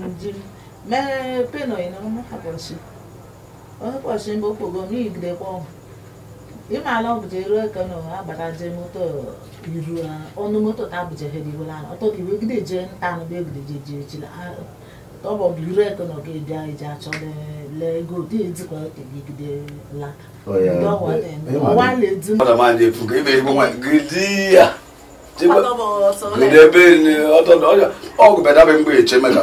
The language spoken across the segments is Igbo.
jimjim mee peno ina mụpọchi ụbọchị mgbe okpogo m igidekwa ịmaala ọbụja eruo ka na agbata je moto iru ọnụ moto ta abụja ha diwela ọtọ ka iwe gide je nta anụ be gide je je chila tọbọ bụ iru eke nọ ga ebi anyị ji achọ le ego dị ejikwa ka gide la ọwa na-edu ọgụ bada mgbe eche maka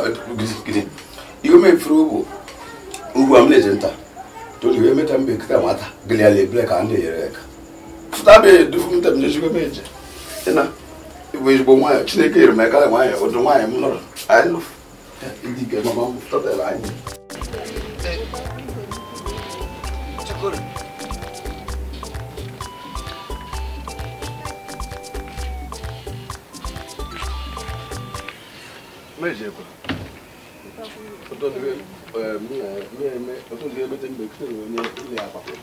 ihe mefuru bụ ugbu a m na-eje nta tolu ihe meta mbe kịta nwata gịlị ala ebile ka a na-enyere ka fụta bụ edufu m tem m eje ịna bụ ezigbo nwaanyị chineke nyere m aka nwaanyị ụdị nwaanyị m anyị ike mama m anyị meze kwa otondiwe otondiwe bete mbekisere onye ile akwakwe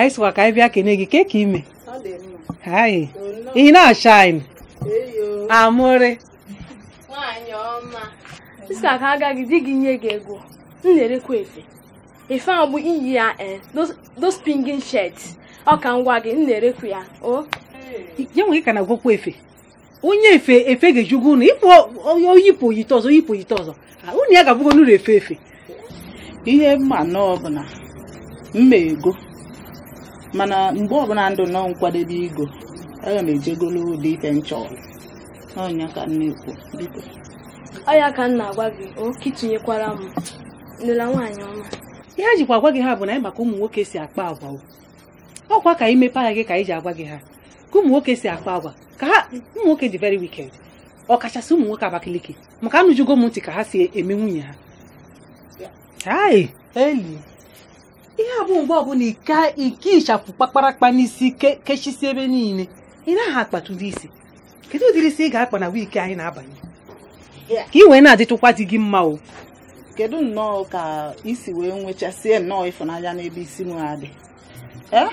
anyị sịkwa ka anyị bịa kene gị ke ka ime anyị ị na-acha anyị amụrị sista ka agaghị di gị nye gị ego m na-erekwa efe efe ahụ bụ iyi ya eh, those pingin shirts ọ ka ngwa gị m na-erekwa ya o ya nwe ka na-agwakwa efe onye efe efe ga-ejugo ụnụ ịpụ oyipụ oyite ọzọ yipụ oyite ọzọ unu ya ga-abụgo n'ụlọ efe efe ihe mma nọọ bụ na mma ego mana mgbe ọbụla ndụ nọ nkwadebe ego aga m ejegolo ụdị ife nchọrọ n'ọnya ka nne kwu biko ọya ka nna agwa gị oke itinyekwara m nụla nwaanyị ọma ihe a jikwa agwa gị ha bụ na anyị maka ụmụ nwoke si akpa agwa ọkwa ka anyị mepee anya gị ka anyị ji agwa gị ha ka ụmụ nwoke si akpa agwa ka ha ụmụ nwoke dị very wicked ọkachasị ụmụ nwoke Abakaliki maka anụjugo m ntị ka ha si eme nwunye ha eli ihe a bụ mgbe ọbụla ike ịchafụ kpakparakpa n'isi kechisi ebe niile ị naghị akpata ụdị isi kedu ụdịrị isi ị ga-akpa na wiiki anyị na-abanye ka ị wee na-adịtụkwa dị gị mma o kedu nnọọ ka isi wee nwechasịa nnọọ ịfụnanya n'ebe isi m adị eh?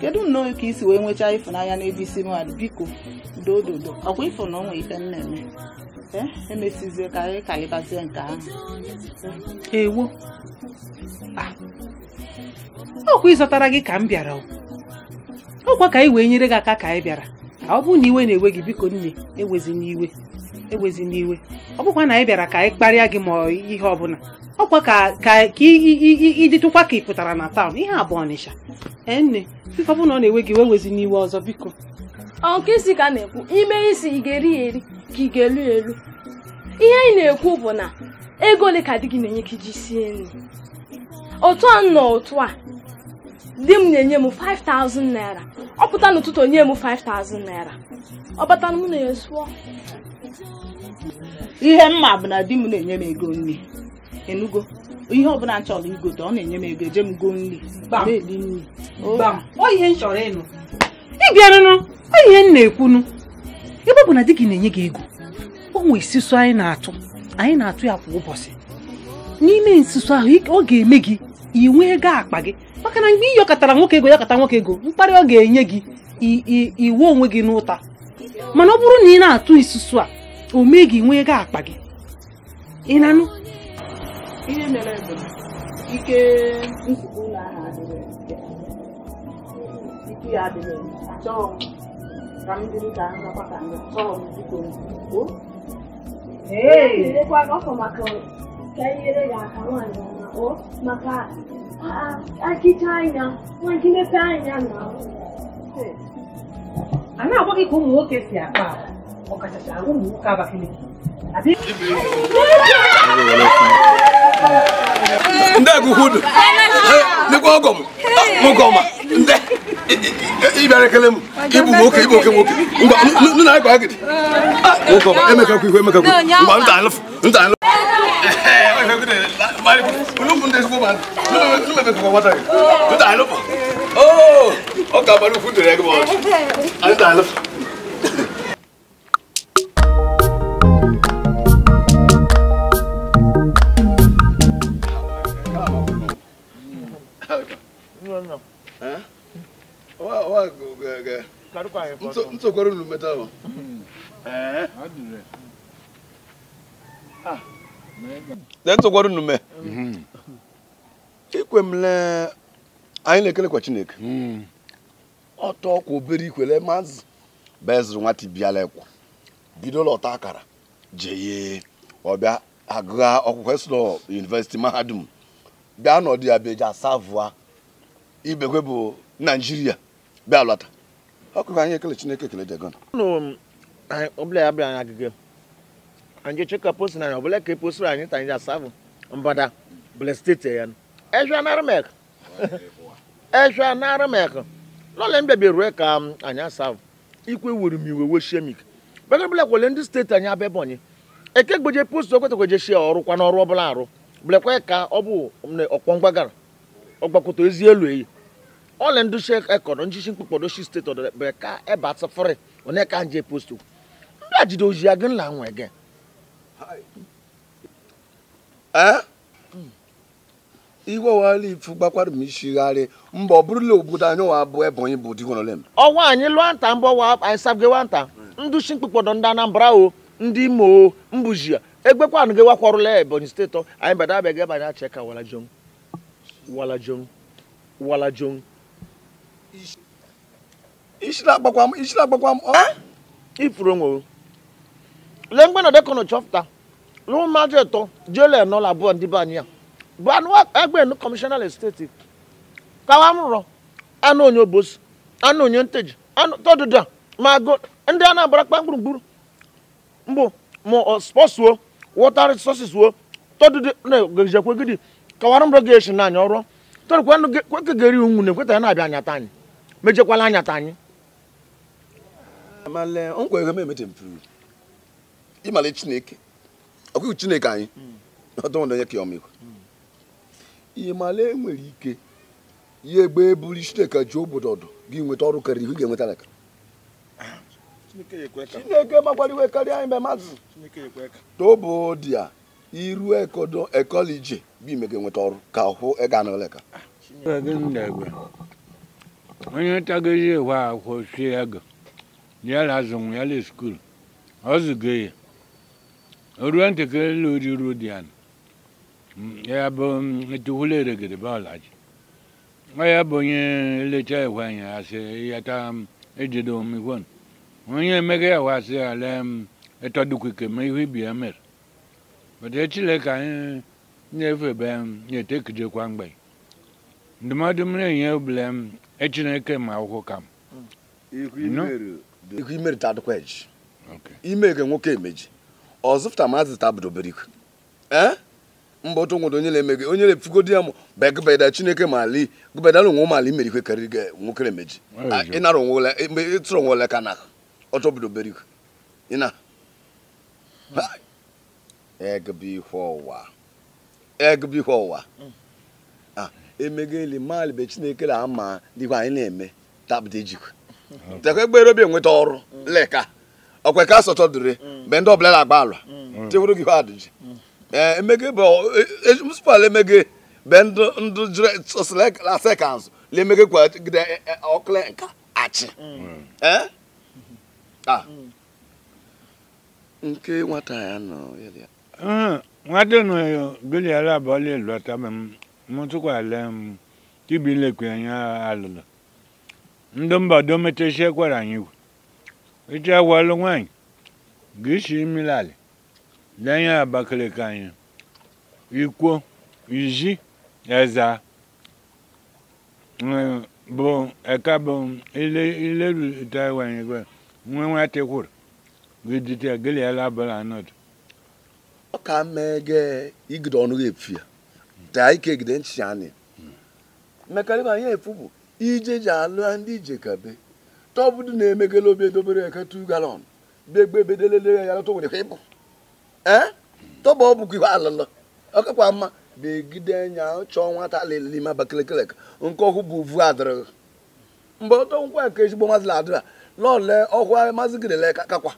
kedu nnọọ ka isi wee nwechaa ịfụnanya n'ebe isi m adị biko dododo ọkwa ifo na onwe ife m na-eme eh? emesizie ka anyị ka ịbazie nke ahụ ewo ah. ọkwa ịzọtara gị ka m bịara ọkwa ka anyị wee nyere gị aka ka anyị bịara ka ọ bụrụ na iwe na-ewe gị biko nne ewezi n'iwe ewezi n'iwe ọ bụkwa na anyị bịara ka anyị kparịa gị ma ihe ọbụla ọkwa ka ịdịtụkwa ka ị pụtara na taụn ihe abụọ ọnịsha nne biko ọ bụ na ọ na-ewe gị wewezi n'iwe ọzọ biko isi ka na-ekwu ime isi ị ga-eri ya eri ka ị ga-elu elu ihe anyị na-ekwu bụ na ego ole ka di gị na-enye ka iji sie nri otu a nọ otu a di m na-enye m 5000 naira ọ pụta n'ụtụtụ onye m 5000 naira ọ bata m na esuo sụọ ihe mma bụ na di m na-enye m ego nri enugo ihe ọbụla nchọrọ chọrọ igote ọ na-enye m ego eje m go nri na-eli nri oyihe oh. m chọrọ ịnụ ịbịarụnụ oyihe m na-ekwunu ebe ọ bụ na di gị na-enye gị ego o nwee isusu anyị na-atụ anyị na-atụ ya kwa ụbọchị n'ime nsusu ahụ ọ ga-eme gị ị nwee ego akpa gị maka na mgbe iyọkọtara nwoke ego yakọta nwoke ego mkparị ọ ga-enye gị iwu onwe gị n'ụta mana ọ bụrụ na ị na-atụ isusu a o mee gị nwee ego akpa gị ị nanụ. ihe mere bụ ike ike ya ka akịcha anya nwa nkinepe anya na a na-agwa ka ụmụ nwoke si akpa ọkachasị ụmụ nwoke Abakaliki ndị agụkwudu dịkwa ọgọ ah, m goma ndị ịbịara ekele i ịbụ nwoke ịbụ oke nwoke nna anyị ihu nta nta ntsokwara unu meta hmm. eh? ahụ na ntụkwara unu hmm. anyị na-ekelekwa chineke ọtọ hmm. ọkwa obere ikwele mazị bezụrụ nwata biala ekwa bidola ọta akara jeye ọbịa agụgha ọkwụkwọ esụlọ yunivesiti mahadum bịa n'ọdụ ya bụ eji asavụa ibekwe bụ naijiria bịa lọta ọkụkọ anyị ekele chineke ekele dị gọnụ ọbụla ya bịa anyị agịga anyị chekwa post na ọbụla ka eposiri anyị ta anyị asabụ mbada bụla steeti ya ezwa narịmek ezwa narịmek lọle mbebi rue ka um, anyị asabụ ikwe wuru m iwe weshemik bega bụla kwele ndị steeti anyị abịa ebonyi eke gbeje post okwetakweje shie ọrụ kwa n'ọrụ ọbụla arụ bụlekwa ka ọ bụ um, ọkpọ mgbagara ọgbakwụta ezi elu eyi ole ndu she ekoro njishi mkpukpodo shi state odo be ka e ba tsafore one ka nje posto ndu ajido oji aga la nwe ge eh igwe wala ifu gbakwara m ishigharị mba ọ bụrụla obodo anyị wa abụ bụ digonolem ọnwa wa anyị ndị anambra o ndị imo o mbụji egbekwanụ gị wakwarụla ebonyi ka wala wala wala ishi na-agbakwa m isi na-agbakwa m ifuru nwere lee mgbe nọdụ kọnọ chọpụta lụrụ mmadụ ịtọ jele abụọ ndị be anyị a bụ anụ egbe nụ kọmishọnal steeti kawa m rụrọ anụ onye obosi anụ onye nteji anụ ma ndị a na-abara kpa gburugburu mbụ ma wọta wo na-egejekwe kawara m rọ ga-eshi n'anya ọrụ kwekegeri unwu mejekwala ta anyị ịmala chineke ọkụkụ chineke anyị hmm. ọdụndonye ka ọmịkwa ịmala enwere ike ya egbe eburu chineke ji obodo ọdụ gị nweta ọrụ karịrị ihe ga-enweta chineke karịa anyị mmadụ tobodia iru ekodo ekolije bụ ime ga-enweta ọrụ ka hụ ega na oleka onye tagozi ewe akwụkwọ sie ego ya la azụ ya le skuul ọ zụgo ya oruo ntakịrị ruo di ya mm, ya bụ mm, etuwula eregede bọọlaji ọ ya bụ onye lecha ewe anyị asị ya yata mm, ejide omikwo onye emega ya wasị ya lee ịtọdukwike ma ihu ibi ya mere bata echile ka anyị na-efe be ya etekijekwa mgbe ndụmọdụ m na-enye obele echineke ma akwụkwọ ka m ihu imere ta adịkwa eji ime ke nwoke emeji ọzụpụta maazị tabụdobere iku ee mba otu nwodo onye na-eme gị onye na-efugo di ya m ba gụbeda chineke ma ali gụbedala onwe ụmụ ala imere ikwe karịrị gị nwoke emeji ịnara onwe ole ịtụrụ onwe ole ka na ọtọ obodobere iku ịna hmm. egbe ihe ọwa egbe ihe ọwa hmm. emego eli mmadụ be chineke na ama dịkwa anyị na-eme tapụta ejikwa tekwa egbere obi enweta ọrụ mm. leka ọkwa ka asọtọ dịrị mgbe mm. ndị ọbụla na-agba ala mm. tiwuru gị adịji ee eh, emege bụ e, e, e, musipal emege be ndụ sekans lemege kwagide ọkụle nka achị eh? ah. nke nwata ya nọ ah, nwata nọ ya eh, goliala abụọla elu ata m mụtụkwala tibi lekwe anyị alụlụ ndị mba dometesie kwara anyị wu eche agwalụ nwaanyị ga-esi imilali lenye abakaliki anyị ikwo izi eza bụ eka bụ ilerute wanye gwe nwe nwata kwuru gidite gịlịala bụla anọdụ ọ ka mmeghe igide ọnụ ga-efu ya taa ike gide nchịchani mmekarịba anyị efubu ije ji alụ ndị ije kabe tọbụdụ na-emegele obi edobere eke tu galọn begbe bedelele ya lọtọ eh? nwere ka ịbụ ee tọba ọ bụkwa ihe alụlụ ọkakwa mma begide anya chọọ nwata alịlị ma bakelekelek nke ọkụ bụ vu adịrị mgbe ọtọ nkwa nke ezigbo mazị adịra lọle ọkụ mazị gidele kakwa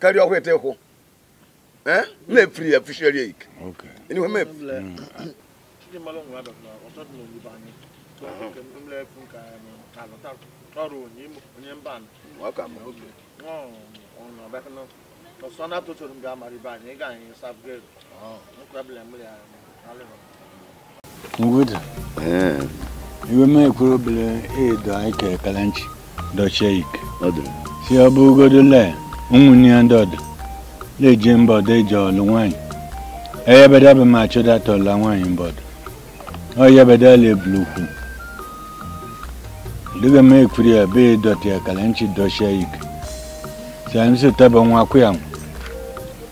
karịa ọkụ ete kwụ na-efiri ya fisheri ike ndị mmadụ nwere abịa na ọsọdụ na oyibo anyị mlefu ka alụta um, ọrụ onye mba ọsọ na atụtụrụ mgbe amara ibe anyị ịga oh. um, eh. anyị nkwebụla mmiri alụrụ iwe obere ike si ọ le ụmụnne ya ndị ọdụ na-eje mba eji ọlụ nwaanyị eyebedebe ma mbọdụ ɔyɛ bɛ daa lɛ buluku dege mɛ kuri a bee dɔte a kalɛnci dɔsɛ yi sɛn se tɛ bɛ ŋwa kuya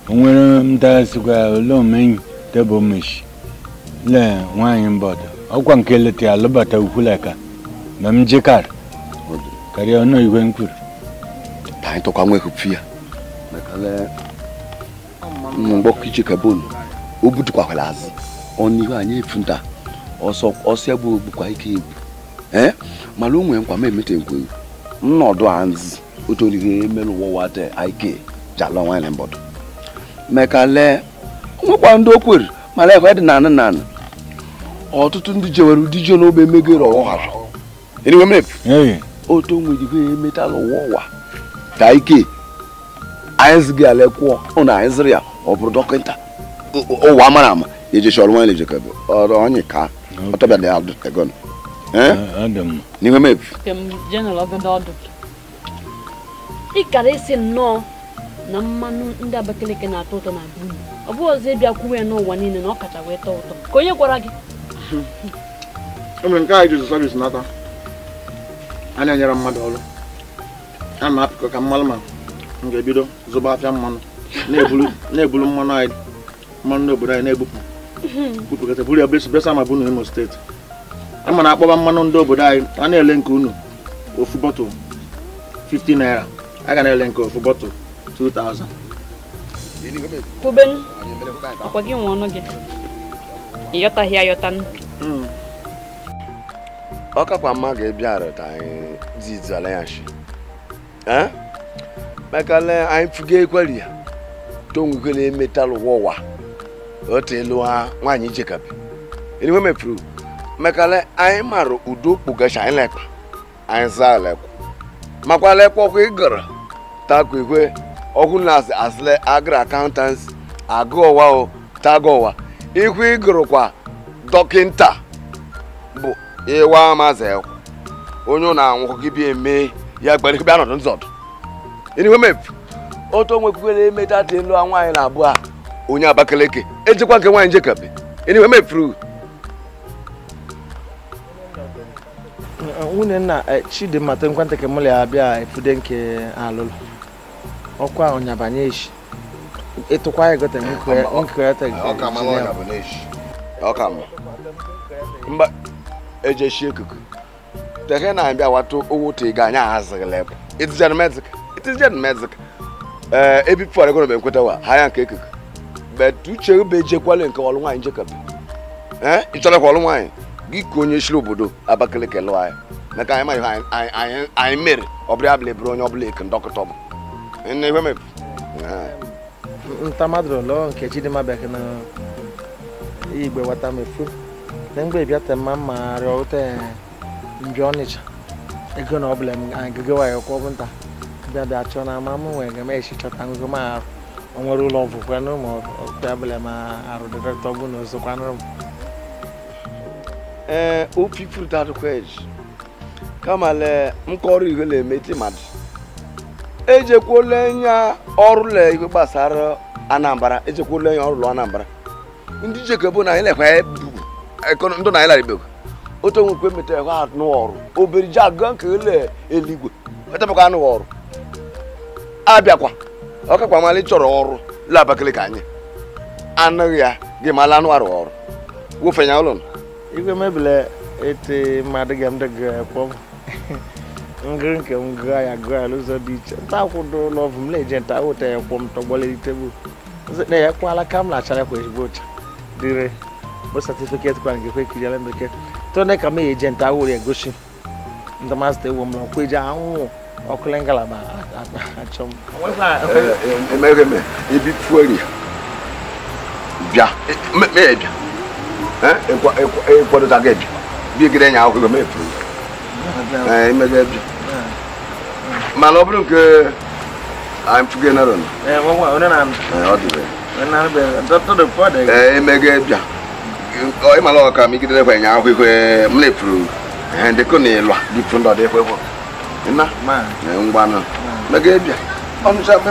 o ŋmɛrɛ n ta suga lɔn mɛ tɛ bɔ mɛsi lɛ ŋwa yi bɔtɔ o kɔn kele te a lɔba tɛ wuku lɛ ka mɛ n je kari kari o n'o yi ko n kuri. taa yi tɔ ka ŋmɛ ko fia mɛ ka lɛ n gbɔ kitsi o butu kɔ akɔla azi ɔni ko a funta. ọsọ egbu bụkwa ike egwu ee mana o nwere nkwa m emete nkwe nnọdụ anzi otorige emelu wọwate ike jala nwanyị mbọdụ meka lee nwekwa ndị okwere mana ekwe dị nanị nanị ọtụtụ ndị jewere ụdị ji n'ogbe emegoro ọhara eriwe m otu onwe jigo emetala ụwa ụwa ka ike anyị ziga ala kwụọ ụna anyị ziri ya ọ bụrụ dọkịta ụwa mara ama ejechi ọrụ nwanyị ejekebe ọrụ onye ka Otabele aldo tegon. Eh? Adam. Niwe mepi. Kem jeno logo dodo. na mmanụ ndị Abakaliki na-atọ ụtọ na dum. Ọ bụ ọzọ ịbịa kwuwe ya n'ụwa niile na ọ kacha wee tọọ ụtọ. Ka onye gwara gị? Emere nke anyị jụrụ sọvis n'aka. A na-enyere mmadụ ọrụ. A na-apịkọ ka mmanụ ma m ga-ebido zụba afịa mmanụ na-ebulu mmanụ anyị mmanụ n'obodo anyị na-ebupụ bupụkata buru ya besa ma bụ na Imo steeti ama mana akpọba mmanụ ndị obodo anyị a na-ele nke unu ofu bọtụl 50 naira a ga na-ele nke ofu bọtụl 2000 kwubenu ọkwa gị ọnụ gị ịyọtaghị ayọtanụ hmm. ọ kakwa mma ga-ebiara ka anyị zizala eh? anyị ekweri ya tonwukele ụwa otu elu ha nwaanyị Jacob iwe mefuru mekale anyị mara udo kpugacha anyị lekpa anyị zaa lekwa makwa lekwa ọkwa ịgara takwa igwe ọkụ na asịle agara akaụntansi agụọwa o tagọwa ikwu kwa dọkịnta bụ ịwa amazi ekwu onye na-anwụkọ gị bi eme ya gbara ikpe anọdụ nzọdụ iwe mefu otu onwe kwukwere emeta ha nwaanyị na abụọ a onye abakaleke ejekwa nke nwaanyị njekabe anyway mefuru nwunye nna e, Chidimma te nkwanta ke mụlị abịa efude nke alụlụ ọkwa ọnyabanye echi ịtụkwa egote nkweta ọka mba eje shi ekuku tehe na abịa watu owo te ga anya azịgịlị bụ it is genmezik it is genmezik ee ebipụtara egonomi ekweta wa ha ya nke ekuku but uche ebe ejekwala nke ọlụ nwaanyị njekebe ee ị chọrọ ka ọlụ nwaanyị gị ka onye chiri obodo Abakaliki lụọ anyị maka anyị ma ihe anyị mere ọ bụrụ abụla eburu onye ọbụla eke ndọkịta bụ nne ihe mepụ ntamadụrụ lụọ nke Chidimma bịa na igbe wata mefu na mgbe bịata mma mma arịa ụta mbịa ọnịcha ego na ọbụla agago waanyị kwọ bụ nta bịa bịa chọọ na ama m nwere ga m echi chọta ngụgụ m arụ onwere ụlọ ọgwụ kwanụ ma okpe abụla ma arụ dịrịta ọgwụ na ozo kwanụ ee o pipụrụ tatụ kwej kama le nkọrọ ihe na-emeti mmadụ ejekwuola ya ọrụ le ihe gbasara anambra ejekwuola ya ọrụ anambra ndị jekebo na ilekwa e ndụ na ilaribego otu onwe kwe meta ekwe anụ ọrụ obere ji agụ nke ele eluigwe etabakwa anụ ọrụ abịakwa ọkakwa amalị chọrọ ọrụ la Abakaliki anyị anụghị ya gị mala anụ arụ ọrụ wụfenya ụlọ igwe mebile ete mmadụ ga m dịgakpọ ngịrị nke m gaa ya gaa n'ụzọ dị iche nta akwụdo ụlọ ọvụ m na-eje nta wụta ya kwọ m tọgbọleli tebụl na ya kwala ka m na-achara kwa ezigbo ụcha dịrị bụ satifiketi kwa ngekwe kiri ala bekee tone ka m eje nta awụrụ ya gosi ndamazita ewu m na ọkwa eji anwụ ɔkulɛnkala ba atsɔm. ɛɛ ɛmɛ mɛ ibi tuori bia mɛ mɛ yɛ bia ɛɛ ekɔ ekɔ ekɔdota kɛ bia bi ekele nya awo kɛ mɛ tuori ɛɛ mɛ kɛ bia mɛ alɔ bi nke i'm tuge na dɔn. ɛɛ wɔn wɔn ɔne na. ɛɛ ɔdi bɛ. ɔne na bɛ dɔtɔ de fɔ de. ɛɛ mɛ kɛ bia ɔ ɛmɛ alɔ ka mi kiri de fɔ nya awo kɛ mɛ tuori ɛɛ de ko ne lɔ di tun dɔ de fɔ fɔ. na ga megabịa ọnụcha be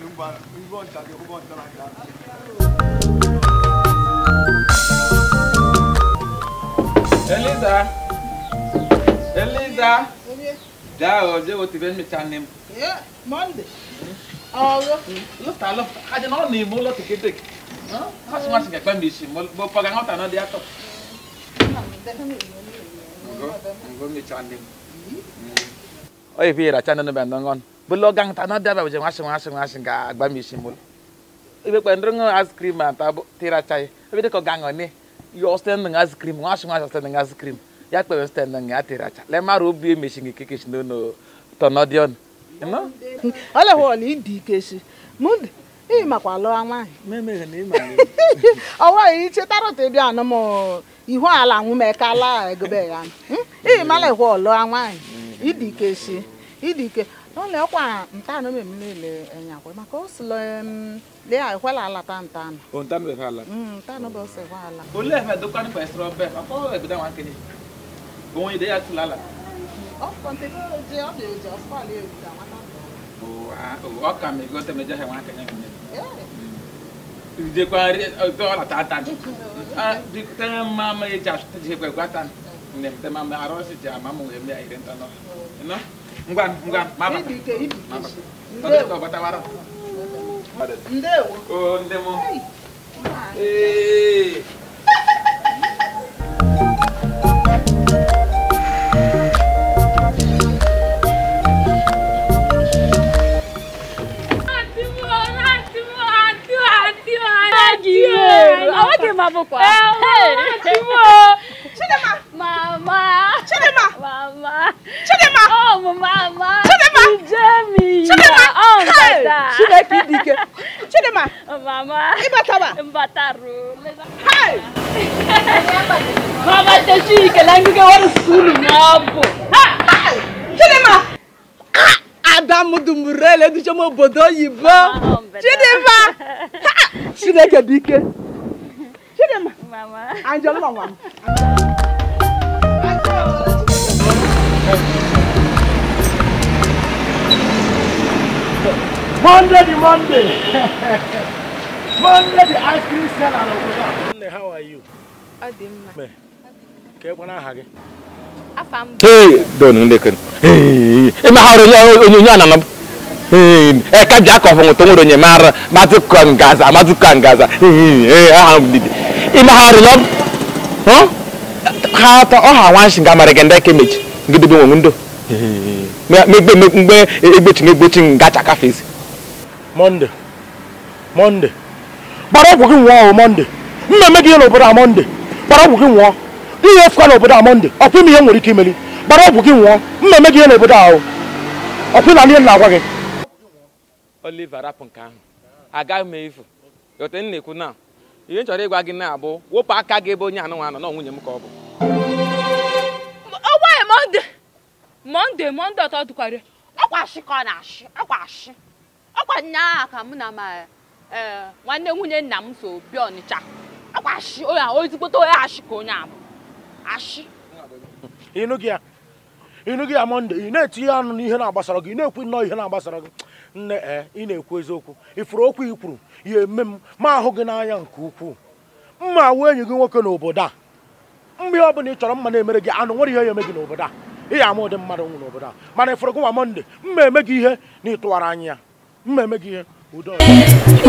lumbar ubon tadi ubon terakhir Eliza Eliza Dao je wo ti fẹ́ mi ta ni. Monday. Ọ̀rọ̀ lọ́tà lọ́tà ni mo lọ́tà kété. Kọ́sùmọ́sì kẹ̀kẹ́ mi sì mo pọ̀gà náà tà náà di àtọ̀. Ngomi cha ni. belogang tanah dia bawa jeng asing asing asing ka agba misimul ibe kwa ndrongo ice cream anta tira chai ibe ko gango ni yo stand ng ice cream ngasing ngasing stand ng ice cream ya kwa stand ng atira cha le maru bi mishingi kikish no no tonodion no ala ho ni di keshi mud ị makwa lụọ nwaanyị ọwa ya ichetarọ hmm? eh, tebi anụ m ihu ala nwumekala egobe ya ị mala ịhụ ọlụọ nwaanyị idike si idike n'ọnụ ọkwa nta anụ mmemme niile enye akwa maka o silo lee ekwela alata nta anụ o nta anụ ala nta anụ bụ ose ekwe ala olee efe dokwa nípa ẹsẹrọ bẹẹ akọ ẹgbẹdẹ wọn kele òun ìdẹyà tún lálà. ọkọ ntẹkọ jẹ ọbẹ òjò ọfọ àlẹ òjò àwọn náà. ọkà mi gbọ́ tẹ̀mẹ̀ jẹ́ ẹ̀wọ̀n akẹ́yẹ́ mi. ìdẹ́kọ̀ ọ̀tọ̀ ọ̀làtà tán tẹ́ máa ma ẹ̀ jà tẹ́ jẹ́ pẹ̀lú àtàn tẹ́ máa ma arọ́ọ̀sì jà máa mọ̀ ẹ̀mí àìrẹ́ntàn náà ngwa ngwa mama mama ndewo o ndemo eh Adi o, àwọn kì í máa bọ̀ pa. Ẹ o, àti wọ́n. Ṣé lè máa. Mama. Chidema. Mama. Chidema. Oh, mama. Chidema. Ijemi. Chidema. Oh, mbata. Chideki dike. Chidema. Oh, mama. Ibatawa. Mbataru. Hi. Mama, tashi ikelangu ke waru sulu mabo. Hi. Chidema. Adamu dumurele duje mo bodo yibo. Chidema. Chideke dike. Chidema. Mama. Oh, Anjolo mama. Anjolo. Monday the Monday. Monday the ice cream seller of Monday, how are you? gị? Afa m. Hey, don ndekon. Hey, e ya onyo nya na Hey, oh, eh, ka ja ko fun to nye mara, ma gaza, ma gaza. Hey, aha m didi. E ma haro lo. Huh? Ha ta o ha wan shinga mare gende kemeji. Ngidi bi wo ndo. Hey. Me me me egbechi egbechi ngacha kafesi. Mọnde Mọnde gbara ọgwụ gị nwụọ Mọnde mma eme gị ihe n'obodo a Mọnde gbara ọgwụ gị nwụọ ihe efukwa n'obodo a Mọnde ọkwa ime ihe nwere ike imeli gbara ọgwụ gị nwụọ na eme gị ihe n'obodo ahụ ọkwa ịla ihe na-agwa gị Oliver rapụ nke ahụ ekwu chọrọ ịgwa gị na-abụ wepụ aka gị na m ọ bụ Mọnde Mọnde Mọnde ọtọ ka ọ na ọkwa nnyaa ka mụ na ma e, nwanne nwunye nna m so bịa ọnịcha ọkwa ashị onye ahụ ezigbote onye ashị ka onye ahụ ashị ịnụghị ya ịnụghị ya mọnde ị na-etinye ọnụ n'ihe na-agbasara gị ị na-ekwu nnọọ ihe na-agbasara gị nne ee ị na-ekwu eziokwu ifuru okwu i kwuru ya eme m ma ahụ gị n'anya nke ukwuu mma awụ enyi gị nwoke n'obodo a mgbe ọ bụla ị chọrọ mma na-emere gị anụ nwere ihe ya eme gị n'obodo a ị ya ama ụdị mmadụ nwụ n'obodo a mana ifuru gị nwa mọnde mma eme gị ihe na ịtụwara anya ya mmemme gị ihe ụdọ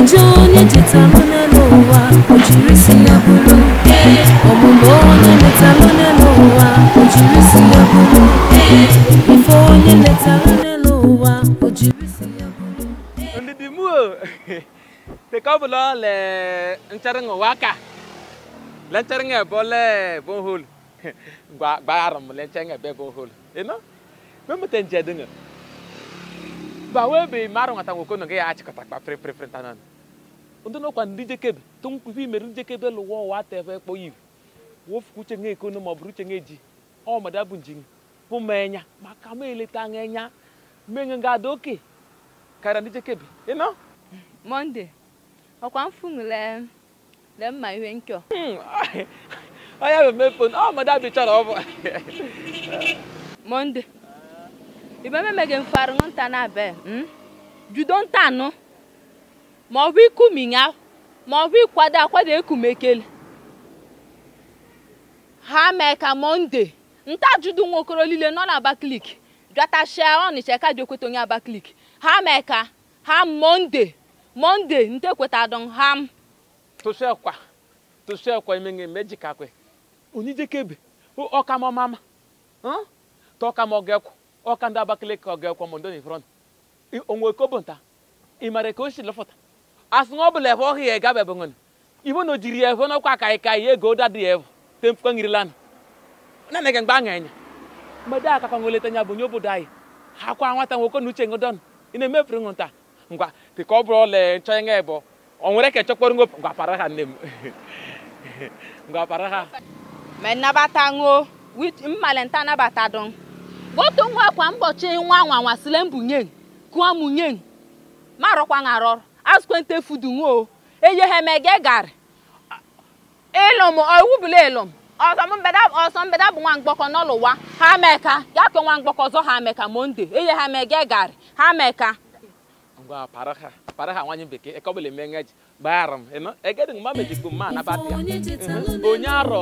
ije onye chetalụ n'elu ụwa o jiri si ya bụrụ ọmụmụ onye letalụ n'elu ụwa o jiri si ya bụrụ ife onye letalụ n'elu ụwa o jiri si ya bụrụ ndị dị mụ tekọbụlọ le ncharịṅ ụwa aka lencharịṅ ebe le bonhol gba gba arụm lencharịṅ ebe bonhol eno mmemuta njedịṅụ bawebeghị m arụnata nwokono gị ya achịkọtakpa prịprịprịta na ndị nọkwa ndị jekebe tụnkwubi mere ndị jekebe lụwa ụwa atebe kpọ iwu wofukuche nge ekono ma ọ bụrụ uche nge ji ọmada bụ nji bụ m enya maka m eleta anya enya menye ga ada oke karịa ndị jekebe ịnọ monde ọkwa mfunwule le mma ihe nkyo onye bụ hmm, mefon ọmada bụ chọrọ ọ bụ mọnde. ibe memege mfaru nta na be hmm? judo nta anụ ma ọ bụ ikuminya ma ọ bụ ịkwado akwado ekumekele ha mee ka monde nta judo nwokoro niile nọ na Abakaliki jatachia Ọnịcha ka ji ekweta onye Abakaliki ha me ka ha monde monde nta ekweta don ha m tụsịakwa tụsịakwa imenge mejikakwe onijekebe ọkamọ mama hmm? tọkamọ gekwu ọka ndị Abakaliki ọ ga ekwo m ndoni front onwe kobo nta ịmara ka o si lọfọta asị na ọ bụla ebe ọhịa gabe bụ nwere ibo na ojiri ebe n'ọkwa ka ka ihe ego dadi evu tempukwa ngiri lana na nege mgbe aṅa anya mmadụ aka ka nweleta nya bụ nye obodo anyị ha kwa nwata nwoke na uche ngodon ị na-emefere nwụ nta ngwa dịka ọ bụrụ ọla nchọ nye o nwere ka chọkpọrọ ngopụ ngwa para ha nne m ngwa para ha mmalenta botu nwa kwa mbochi nwa nwanwa sile mbụ nye kụọ m nye marọkwa ngarọ asụkwente fudu nwo eye ha mege gari ịlụm owubula ịlụm ọsọ mbeda bụ nwa mgbọkọ n'ụlụwa ha meka e e ya ke nwa mgbakọ ọzọ ha meka monde eye ha mege gari ha meka ngwa paraha nwanyị bekee ekọbụla eme ngeji gbara m ịnụ egedị na batịa onye arọ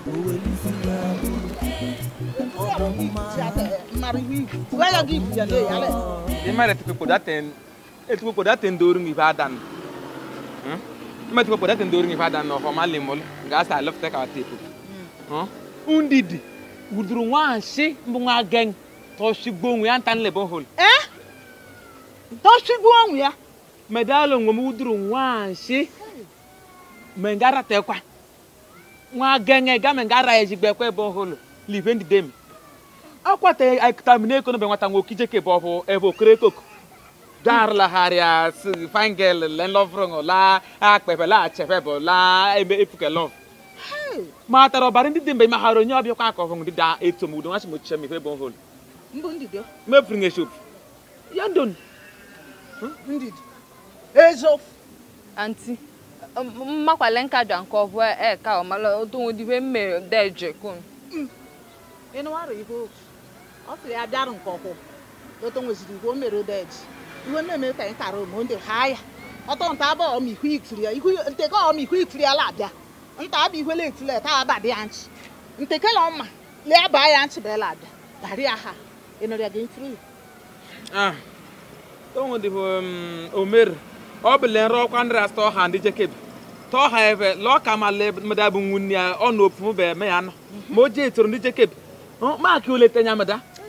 arihi kuya gi kuya le yale imare tuku poda ten e tuku poda ten doru ngi badan hm ten doru ngi badan no homa limol ga sa love take our table hm undidi wuduru nwa shi mbu nwa geng to shigbo nwi antan le bon hol eh to shigbo nwi ya medalo ngom wuduru nwa shi mengara tekwa nwa genge ga mengara ejigbe kwe bon hol live ndi akwata atamine ekono be nwata nwoke ijeke bụ ọbụ ebe okere koko darlagharịa fangel lenlovrong la akpepe la achefebụ la eme efuke lov ma tara ọbara ndị dị mgbe maghara onye ọbịa kwa aka ọvụng dịda eto m udo nwachi m ochiche m ife bụ hol mefuru ng eshop ya ndon ezof anti mmakwale nka jwa nke ọbụ eka e, ọmala otonwodiwe mme deje kun mm. ịnụ arụ ihe otu ọ sịrị ya bịarụ nke ọkwụ oto nweziri igwe o mere odeji iwe mmemme ka anyị kara omo ndị ha ya ọtọ nta abụ ọm ihu ikiri ihu nteke ọm ihu ikiri ala abịa nta abụ ihwele ikiri ta aba dị ya nchi nteke na ọma lee baa ya nchi bela abịa dari ya ha ịnọrịa gị nkiri ah tongo dị um, omer ọ bụla le nrọ ọkwa ndị rasta ọha ndị jekebi tọha ebe lọ ka ma le mmadụ abụ nwunye ya ọ na opu mbe eme ya anọ ma o ji etoro ndị jekebi maakị olete nya mmadụ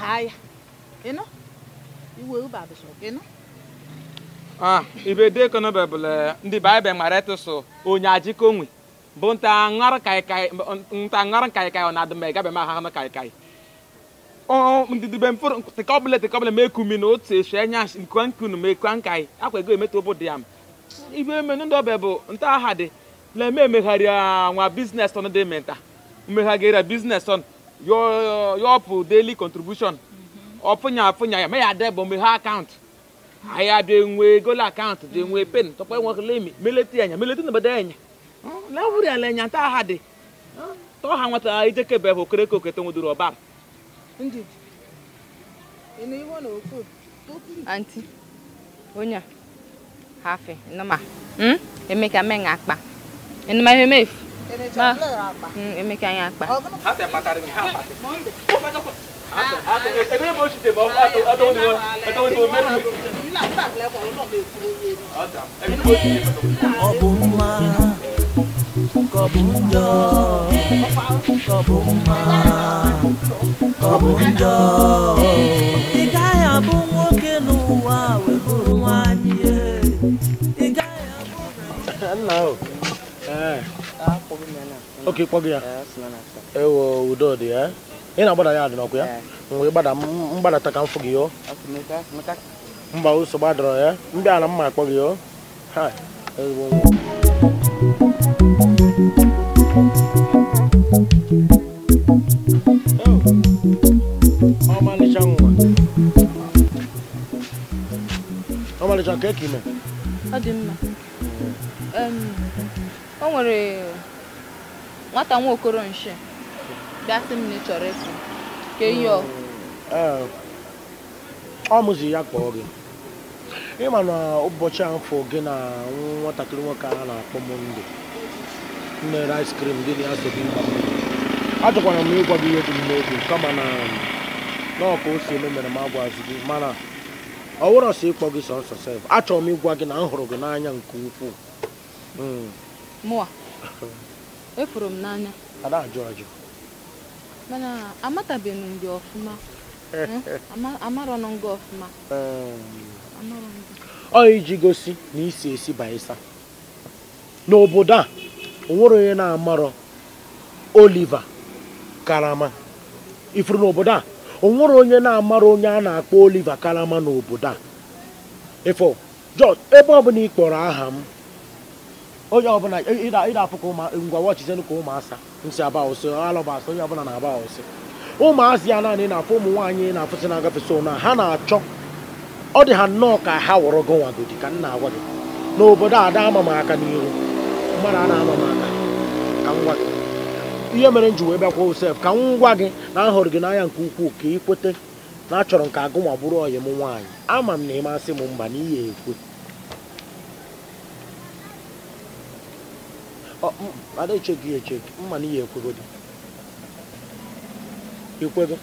haya ino iwe uba bishop ino ah ibe de kono bebele eh, ndi bible ngare tusu onya ajiko nwe bụ nta ngara kai kai nta ngara kai kai ona dum ga be ma ha na kai kai o ndi dibe mfor te kobele te kobele meku mi no te she nya nkwan kunu meku kwan kai akwa go emeto obodo yam ibe me ndo bebụ nta ha de le me megharịa nwa business on de menta meghagera business on your your daily contribution ọfụnya mm-hmm. afụnya ya mee ya debụ mgbe ha account? ahịa dị nwe gola account. dị nwe mm-hmm. pen tọkpa nwokelemi meleti anya meleti na bada anya mm-hmm. na wuri ala anya nta ha dị tọ ha nwata ijekebe bụ okereke okete nwedoro ọbara anti onye hafe nụma hmm? emeka mee nga akpa enụma ihe mefu Ma. ka anyị akpa. Ha te patara mi ha pate. Ebe mo si te mo ato ato ni mo ato ni mo meri. Ọ bụ mma ka ọ bụ njọ ka ọ bụ mma ka ọ bụ njọ. Ị gaghị abụ nwoke n'ụwa wee bụrụ nwaanyị. Ị gaghị abụ. Nna o. Ah, ah. okay kpọgị ah. eh, eh? eh, ya ewo udo dị ya ị na-agbada ya adịnọkụ ya mgbe mgbadata ka m fụ gị yo mba ụsọ gbadọrọ ya mbịa na mma akpọ gị yo ha ezigbo ọmalịcha oh. nwa ọmalịcha nke ka ime ọ dị mma o nwere nwata nwa okoro nshi bịa sị m na ị chọrọ ịpụ ka eyi ọ mụzi ya kpọọ gị ịma na ụbọchị afọ gị na nwatakịrị nwoke a na-akpọ monde nere ice cream gị na ya so gị mgba achọkwara m ịgwa gị ihe dị m n'obi kama na n'ọka o si eme mere m agwazi gị mana ọ wụrọ sọ ịkpọ gị sọsọ sef achọrọ m ịgwa gị na m hụrụ gị n'anya nke ukwuu hmm. mụa efuru m n'anya mana amatabeghị m gị ọfụma eh. hmm? amarọnụ gị ọfụma ọ iji gosi na isi esi baịsa n'obodo a onwere onye na-amarọ oliva karama ifuru n'obodo a onwere onye na-amara onye a na-akpọ oliva karama n'obodo a ifo jọs ebe ọ na ị kpọrọ aha m onye ọbụla ịda afụ ka ụmụ ngwa wọchizenụ ka ụmụasa nsị aba ụsị alụba onye ọbụla na-aba ụsị ụmụazị ya naanị na-afụ ụmụ nwaanyị na-afụsị na-agafesi ha na-achọ ọ dị ha nnọọ ka ha wụrụ gị nwagodi ka nna agwa gị n'obodo a ada ama m aka n'ihu mmadụ a na-ama m aka ka ngwa gị ihe mere m ji wee bịakwa osef ka m gwa gị na ahụrụ gị n'anya nke ukwuu ka ị kwete na achọrọ nke ka bụrụ ọyị m nwaanyị ama m na ị masị m mba na ihe ekwe ada echegị echegị mma na ihe dị, ikwego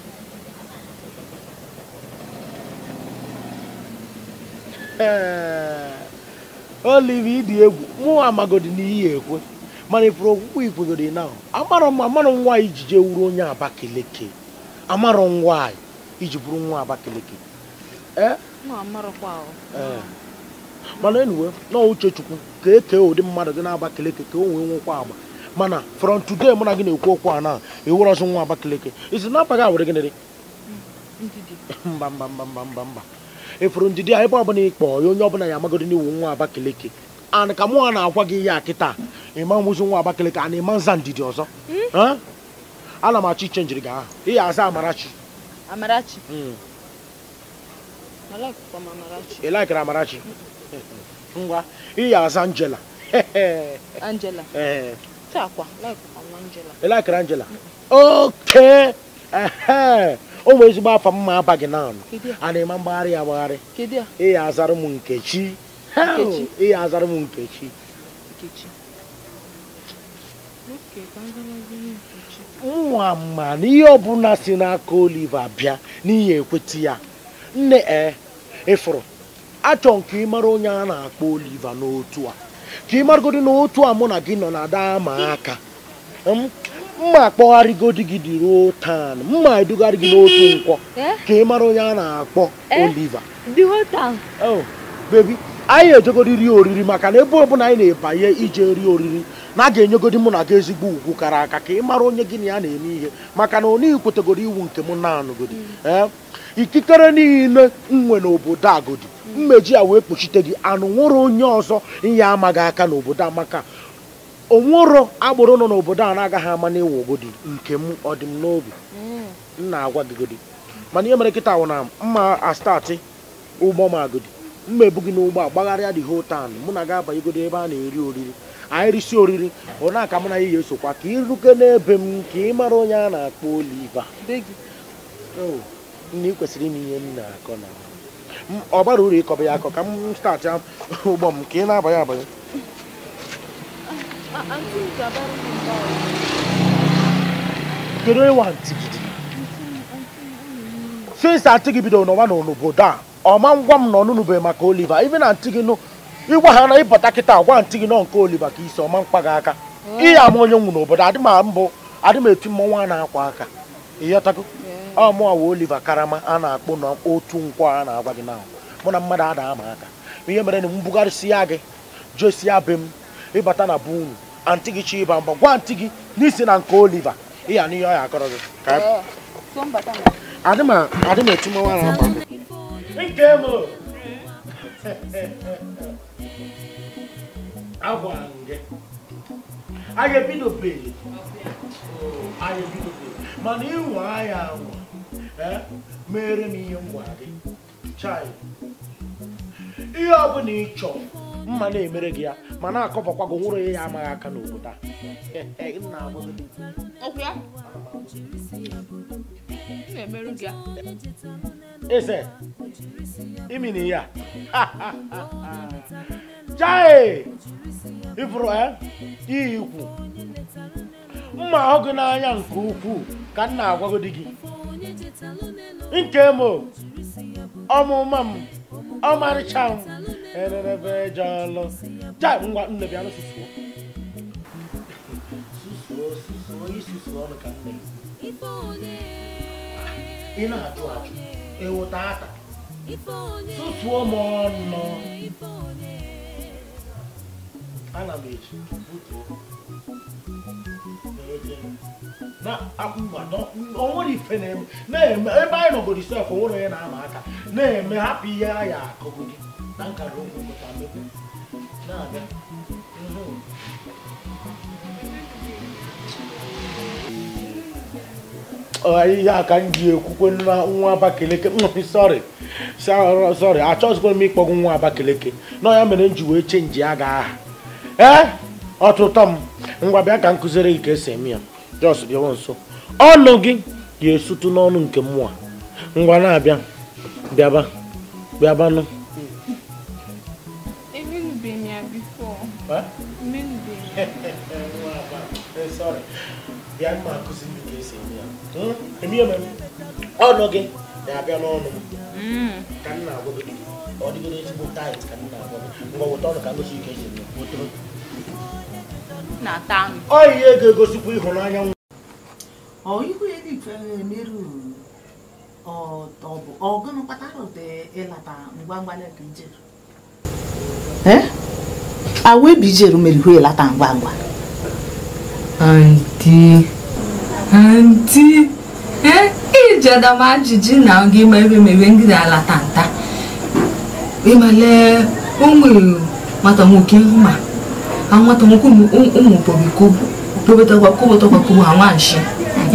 olive ịdị egwu mụnwa amagodi na ihe ekwe mana ịpụrụ okwukwe dị na amarọ m amarọ nwaanyị iji jee wuru onye abakeleke amarọ nwaanyị iji bụrụ nwa abakeleke mana enuwe na uche chukwu ka ekee ụdị mmadụ dị n'Abakaliki ka o nwee nwekwa agba mana from today mụ na gị na-ekwu okwu a na ewere ọzọ nwa Abakaliki isi na gịnịrị mba mba mba mba mba mba ndidi a ebe ọbụla ịkpọ ya onye ọbụla ya n'iwu nwa Abakaliki ka mụ na-agwa gị ihe a kịta ịma nwụzi nwa a na-ema nza ndidi ọzọ hmm? ana m achọ iche njiri ihe aza Amarachi Amarachi hmm. Amarachi ngwa iya aza Angela Angela ị oke o ezigbo afọ mma aba gị naanụ a na-eme mgbagharị ya agbagharị ịya azara m nkechi ịya azara m nkechi nwa ma na ihe ọbụla si n'aka Oliva bịa n'ihi ekweta ya nne eh, ịfụrụ achọ nke ịmara onye a na-akpọ Oliva n'otu a ka ị maragodi n'otu a mụ na gị nọ na daa ma aka mma akpọgharịgodi gị dị ruo tan mma edugharị gị n'otu nkwọ eh? Eh? ka ị mara onye a na-akpọ eh? Oliva oh, bebi anyị ejegodiri oriri maka na ebe ọbụla anyị na-ebanye ije rie oriri na a ga-enyegodi mụ na gị ezigbo ugwu kara aka ka ị mara onye gị na ya na-eme ihe maka na onye kwetegoro iwu nke m na-anụgodi mm. ikikere niile nwe n'obodo agodi mmeji a wee kpuchite gị anụ nwụrụ onye ọzọ inye amaghị aka n'obodo a maka onwero agbụrụ nọ n'obodo a na-agaghị ama na ịwụ ogodi nke m ọ dị m n'obi m na-agwa gị godi mana ihe mere nkịta wụ na mma astatị ụgbọ m agodi mma ebu gị n'ụgbọ a gbagharịa dị hotan mụ na ga-abanye ebe a na-eri oriri anyị risi oriri ọ na-aka m na ihe esokwa ka ịruke n'ebe m ka ị onye a na-akpọ Oliva oh, na ị kwesịrị ime ihe m na-akọ na ọ bara uru ịkọba ya akọ ka m staatị ụgbọ m ka ị na-abanye abanye kedu onye antị gị bidoro n'ọnwa n'obodo a ọma ngwa m na ọnụnụbeghị maka oliva ibe na ntị gị nụ ịgwa ha na ịbata kịta gwa ntị gị nọ nke oliva ka isi ọma mkpa gị aka ịya ama onye nwụ n'obodo adị m mbụ adị m eti mmọnwụ na-akwa aka ịghọtago mụọwa oliva Karama a na-akpụ na otu nkwa a na-agwa gị na mụ na mmadụ ada ama aka ihe mere na m gị josia be m ịbata na bụ unu antị gị chi ịba mba gwa ntị gị n'isi na nke oliva ịya ọ ya akọrọ gị adị na akwa gị mana Eh? mere m ihe m gị chai ihe ọ bụla ị chọrọ mma na-emere gị ya ma na-akọbakwa gị nwụrụ ya amaghị aka n'obodo a eze imini ya chai ifuru eh? iyi ikwu mma ahụ gị n'anya nke ukwuu ka m na-agwago gị nke m ọmụma m ọmarịcha m ererebe eje ọlụ ja ngwa nne bịa nụsusuo ị na-ajụ ajụ ewota ata susuo m ọnụ ana m eji butuo onwere ife na-eme ebe anyị nọgoro isi afọ na na-eme hapụ ihe a ya akụgo gị ụmụ na-abịa ihe a ka m ji ekwukwe na nwa Abakaliki sọrị achọghịzikwa m ịkpọgụ nwa Abakaliki na ya mere m ji wee chenji ya ga aha ọtụtụ m ngwa bịa ka gị ka esi eme ya jos bịawa nso ọnụ gị ga-esutu n'ọnụ nke mmụọ ngwa na-abịa bịaba bịabanụ hmm? ọnụ gị na-abịa n'ọnụ hmm. ka m na gị ọ ezigbo ka m na gị ngwa weta ọnụ ka m gosi ike na-ata anụ ọ ihe ga-egosikwa ịhụnanya nwa ihu ya dị mfe merụ ọtọbụ ọgụnụ kpatara ụtọ ịlata ngwa ngwa leta ijeru awa ebe ijeru mere ihu ịlata ngwa ngwa ndị ndị ijedama ajụjụ na oge ime ebe mebe ndị na-alata ịmale ụmụ nwata nwoke àwọn àtọmọkù mi òun bòbí kóbù bòbí tọgbà kóbù tọgbà kóbù àwọn àṣẹ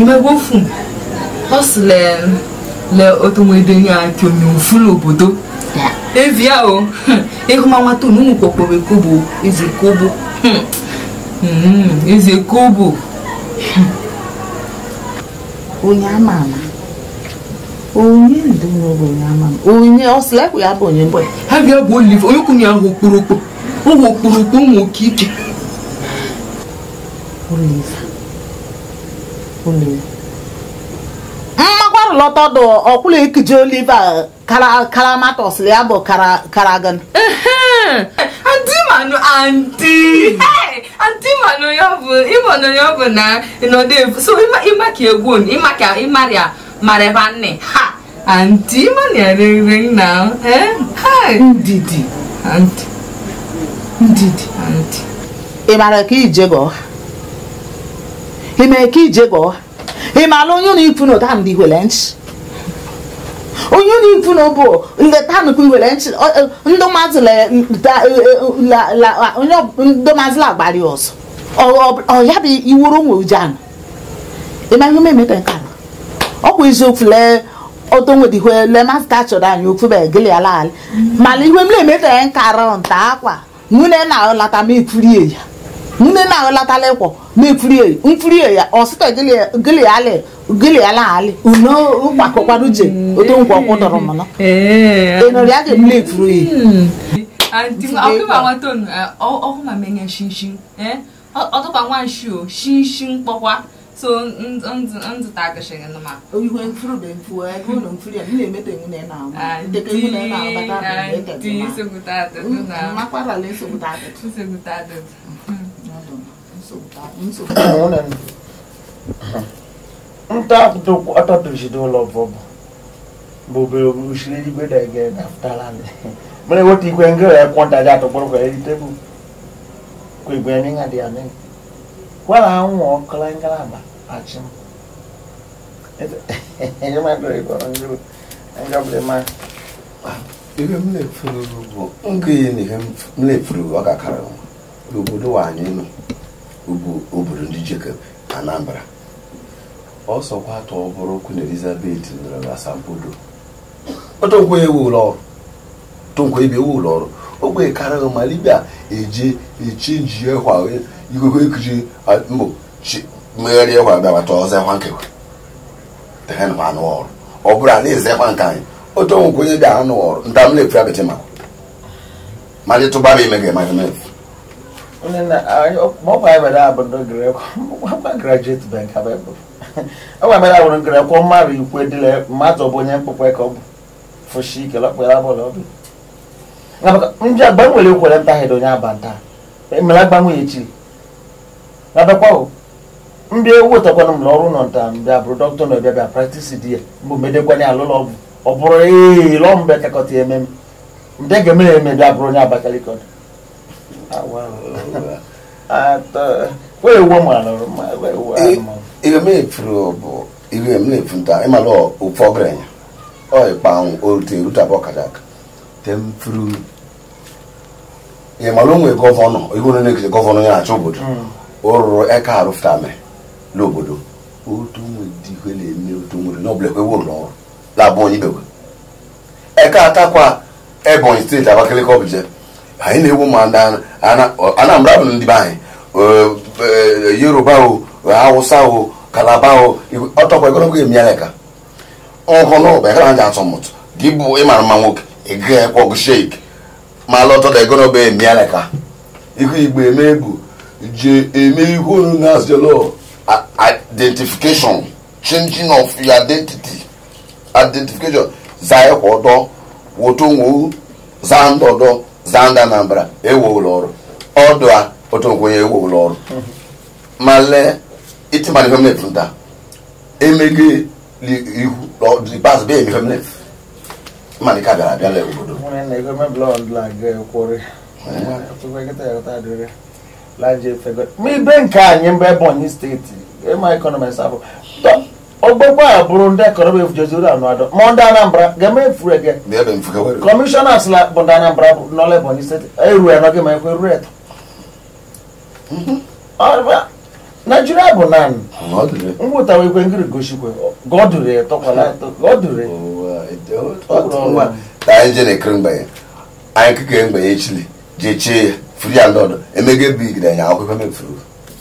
ìmẹgbẹ fún ọsì lẹ lẹ otomoedo ní àti omi òfin lòbòdó evi a o ehu ma nwa tonu mu kpọkpọ be kobo eze kobo eze kobo onye ama ama onye onye ọsịla ekwu ya bụ onye mbụ ha ga bụ oliv onye kwunye ahụ okporokpo ụmụ okporokpo ụmụ oke ike mmakwarụlọta dụ ọkwụla ekije oliva karamata ya bụ karagan ndị ya bụ ịmanụ ya bụ na ka egwu marevanne ha anti mania ring ring now eh hi ndidi anti ndidi anti ị mara ka ije gọọ ị mere ka ije gọọ ị mara onye ụlọ ifu na ụta ndị were nchi onye na ifu na ụbụ nleta nnukwu iwere nchi ndị maazị lagbari ọzọ ọ ya bụ iwuru onwe ujianụ ị ma ihe ome emeta nke ala ọ bụ eziokwu lee otonwedihe lee masta achọrọ anyị okwube gịlị ala ala mana ihe m na-emetara nkarọ nta akwa nwunye na-alata ma ekwurie ya Nwunye na-aghọlatala ịkwọ na-ekwurie nkwurie ya ọ sịta gịlịala alị uno ụkpakọkwara uche mm. otu nkwa ọkwụ dọrọ mana enori eh, eh. ya ga emule ekwuru ya ọkụma menye shinshin ọtụkwa nwa nshi o shinshin kpọkwa so nzụtagịchịghị nma ihe mfụrụbe mfụ ego ụlọ mfụrụ ya na-emete iwu na ị na-agba dịka iwu na ị na-agbata makwarala nsogbuta ntaọtọtụchidụlọ bọbụ bụbe usiri eluigwe dege dapụtara mere weta ikwe ngịrị ekwọntaji atọkpọrọ kwere tebụl kwa igwe nye ha dị amịrị wala anwụ ọkụla ngalaba achị m ihe m na-efuru bụ nke ihe m na-efuru ọkakara n'obodo anyị nọ bụ obodo ndị Jacob Anambra ọsọkwa atọ bụrụ Queen Elizabeth nọrọ n'Asambodo ọtọnkwe ewu ụlọ ọrụ tọnkwe ebe ewu ụlọ ọrụ ogbe karịrị ma libia eje echenji ya kwa mbụ chi mmegharị ekwa bịabata ọzọ ekwa nkekwe tehenwa anụ ọrụ ọ bụrụ a na-eze ekwa nke anyị otu onwe onye bịa anụ ọrụ nta na-efu ya bete ma ma tụba bụ ime ga ọ abụ graduate bank mere bụ onye mkpụkpe ka ọ bụ fụshi ike onye aba nta emere agbanwe echi abịakwa mbịa ewu ụtakwana m ọrụ nọ nta mbịa abụrụ dọkịta na ọbịa bịa praktisi di ya mbụ medekwanye alụlọ ọgwụ ọ bụrụ ee lọọ ya onye Abakaliki ọdụ bụ ihe mmefu nta ịmalụ ofe ọgaranya ọịkpanwụ onye na-ekele gọvanọ obodo hmm. o rụrụ eka arụfụtame n'obodo otu na-eme otu nwere ụlọ ọrụ labụ onye eke atakwa ebonyi steeti abakaliki ọbụje anyị na-ewu ma anambra bụ ndị be anyị e, yoruba o hausa o kalaba o ọtọkwa egologo nhụnụba ji atụmụtụ gị bụ ịmara mma nwoke ịga ọgụ ma egologo emialeka ihu igbo eme je emerigo known as the law identification changing of your identity identification zaye kọdọ wotonwo zandọdọ zanda nambra ewo ụlọ ọrụ ọdụ a otonwo ya ewo ụlọ ọrụ ma lee itimani feminine funta emege ihu lọdịbas bee mi feminine mani ka bịara abịa lee obodo. ma ibe nke anyị mgbe Ebonyi steeti ịma ekọnọmis abụ ogbogbo a bụrụ ndị ekọnọmi jezuru anụado ma ndị Anambra ga-eme efuru ege kọmishọna sịla bụ ndị Anambra bụ n'ọla Ebonyi steeti eru ya n'oge ma ekwe eru eto Naijiria bụ naanị ngwụtawa ekwe ngiri gosikwe godure etọkwala etọ godure anyị jere ekere mgbanye anyị kekere mgbanye chili jechie ya firi alɔdɔ emege bi gida nya akɔ fɛn bɛ firi o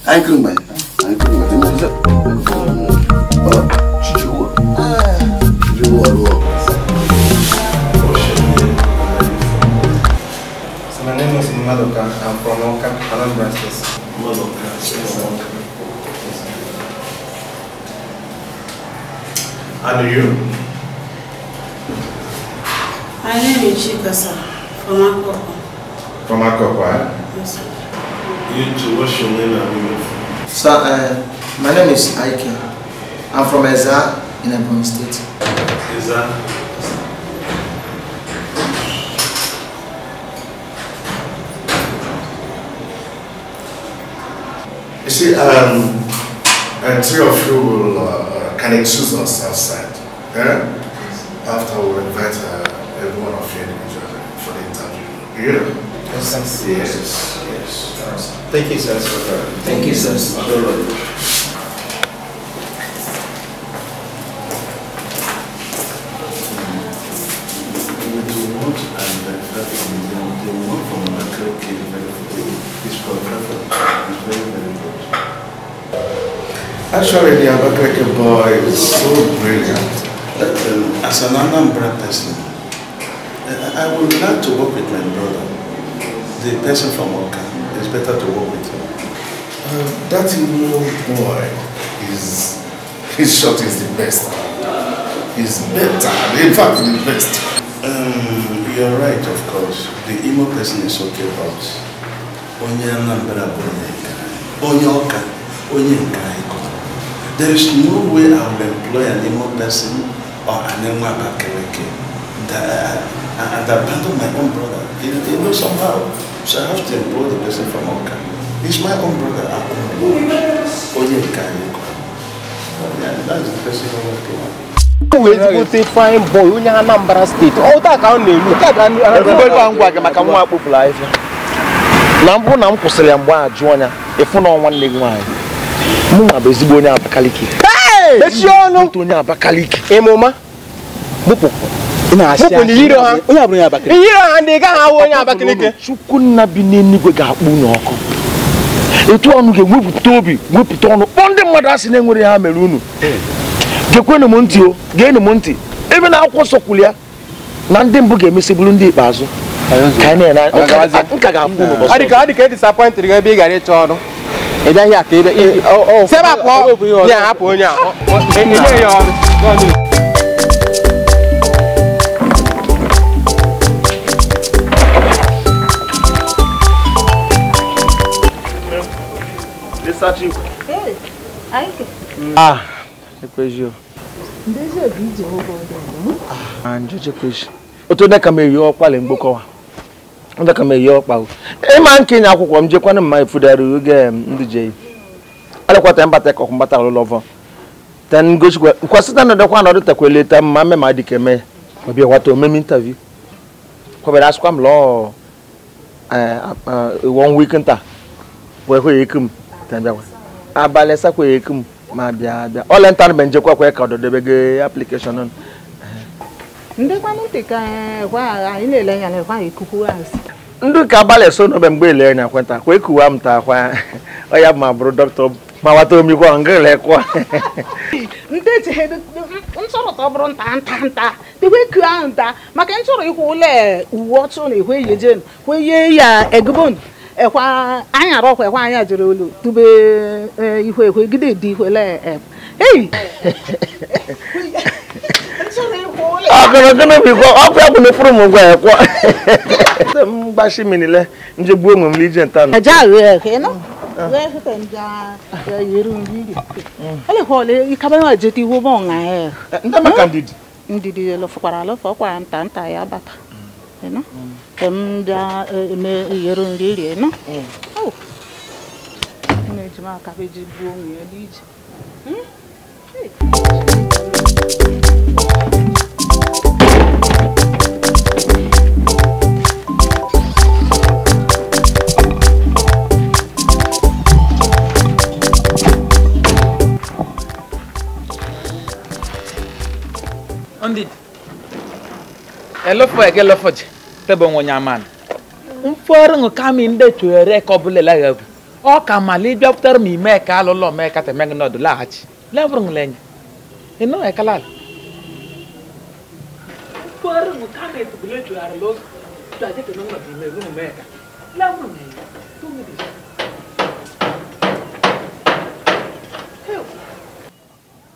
ayi kiri mɛ ayi kiri mɛ tɛmɛ sɛ ɔ titi wɔ titi wɔ lɔ. My name is Madoka. I'm from Oka, Anambra State. Madoka. Yes. And you? My name is Chikasa from Akoko. Yes, sir. You what's your name and where you So, uh, my name is Ike. I'm from Eza in Ebony State. Eza? You see, um, three of you will, uh, can excuse us outside. Yeah. After we'll invite uh, one of you individually for the interview. Yeah? of sense. Yes, yes. Thank you, sir. Thank you, sir. Actually, the Abakreke boy is so brilliant that um, as an Anambra person, I would like to work with my brother the person from Oka it's better to work with him. Uh, that Igbo boy is, his shot is the best. He's better, in fact, the best. Um, you're right, of course. The emo person is okay, but onye Anambra bụ onye nka, onye Ọka, There is no way I will employ an emo person or an Imo Abakaleke that, uh, uh, uh and abandon my own brother. You know, somehow. So I have to employ the person from Oka. He's my own brother. I own Only That's the person who was to wee ezigbote fine boy onye Anambra steeti ọta oh, ka ọ na-elu ngwa gị maka nwa akpụpụrụ ahịhịa na mbụ na m kwụsịrị ya mgbe a jụọ ya ịfụ na e nwanne gị nwaanyị mụ bụ ezigbo onye Abakaliki mechie ọnụ Abakaliki e onye ha ndị gaghị ahụ onye Abakaliki Chukwunna bi n'Enugwe ga-akpụ n'ọkụ. ọkụ etu ọnụ ga-ewepụta obi wepụta ọnụ kpọọ ndị mmadụ asị na-enwere ha mere unu gekwenụ m ntị o geenụ m ntị ebe na akwụkwọ nsọ ya na ndị mbụ ga-emesi bụrụ ndị ikpeazụ e ebe gara ọrụ ị Lissatiu. Ei, aí que... Ah, depois eu. Desde o vídeo, eu vou ver. Ah, depois. O tó dẹ́ka mi yọ ọkwa lè ń gbókọ wa o dẹ́ka mi yọ ọkwa o e máa ń kéèyàn akwụkwọ m jekwa na mma efudari oge ndị je yi alekwa tẹ mbata ẹkọ mbata ọlụ lọvọ tẹ ngosi kwa nkwasi tẹ nọdọkwa na ọdụ takwa eleta mma mmemme adịka eme ọbịa wata omeme intaviu kwabere asịkwa m lọọ one week nta wee hụ ya ikum abalị sakwere ekum ma bịa bịa ọla nta na njekwa kwa ka ọdọdebe gị aplikeshọn nụ ndị kwanụ ntị ka gwa anyị na-ele anya na gwa ikuku azụ ndị ka abalị so n'obe mgbe ele anya kwenta kwa ekuwa m ta kwa ọ ya ma bụrụ dọkịta ma wata omikwa nga lekwa ndị ji ntụrụ ka ọ bụrụ nta nta nta dịkwa eku ahụ nta maka ntụrụ ịkwụ ụlọ uwe ọtụ na ihwe ihe jenu kweye ya egubonu ekwa anyara ọkwa ekwa anya jere olu tube e, ihu ekwe gide dị ihu ele eyi ọkụnụkụnụ ọkụ ya kwụna furu gwa ya e, ah. kwa e. hmm? ndidi nta nta ya bata hmm. muda yerondiri ena eji m aka eji gbuo onwe ya n'ije Ondid, ẹ lọ́fọ̀ ẹ̀gẹ́ lọ́fọ̀ jẹ́. tebe onwenye amana mfọrọ ṅụ kama ndị tuere ka ọ bụla ọ ka mala ịbịapụtara m ime ka alụlọ mee ka temegị nọdụ laghachi lo nọdụ ime rụ ka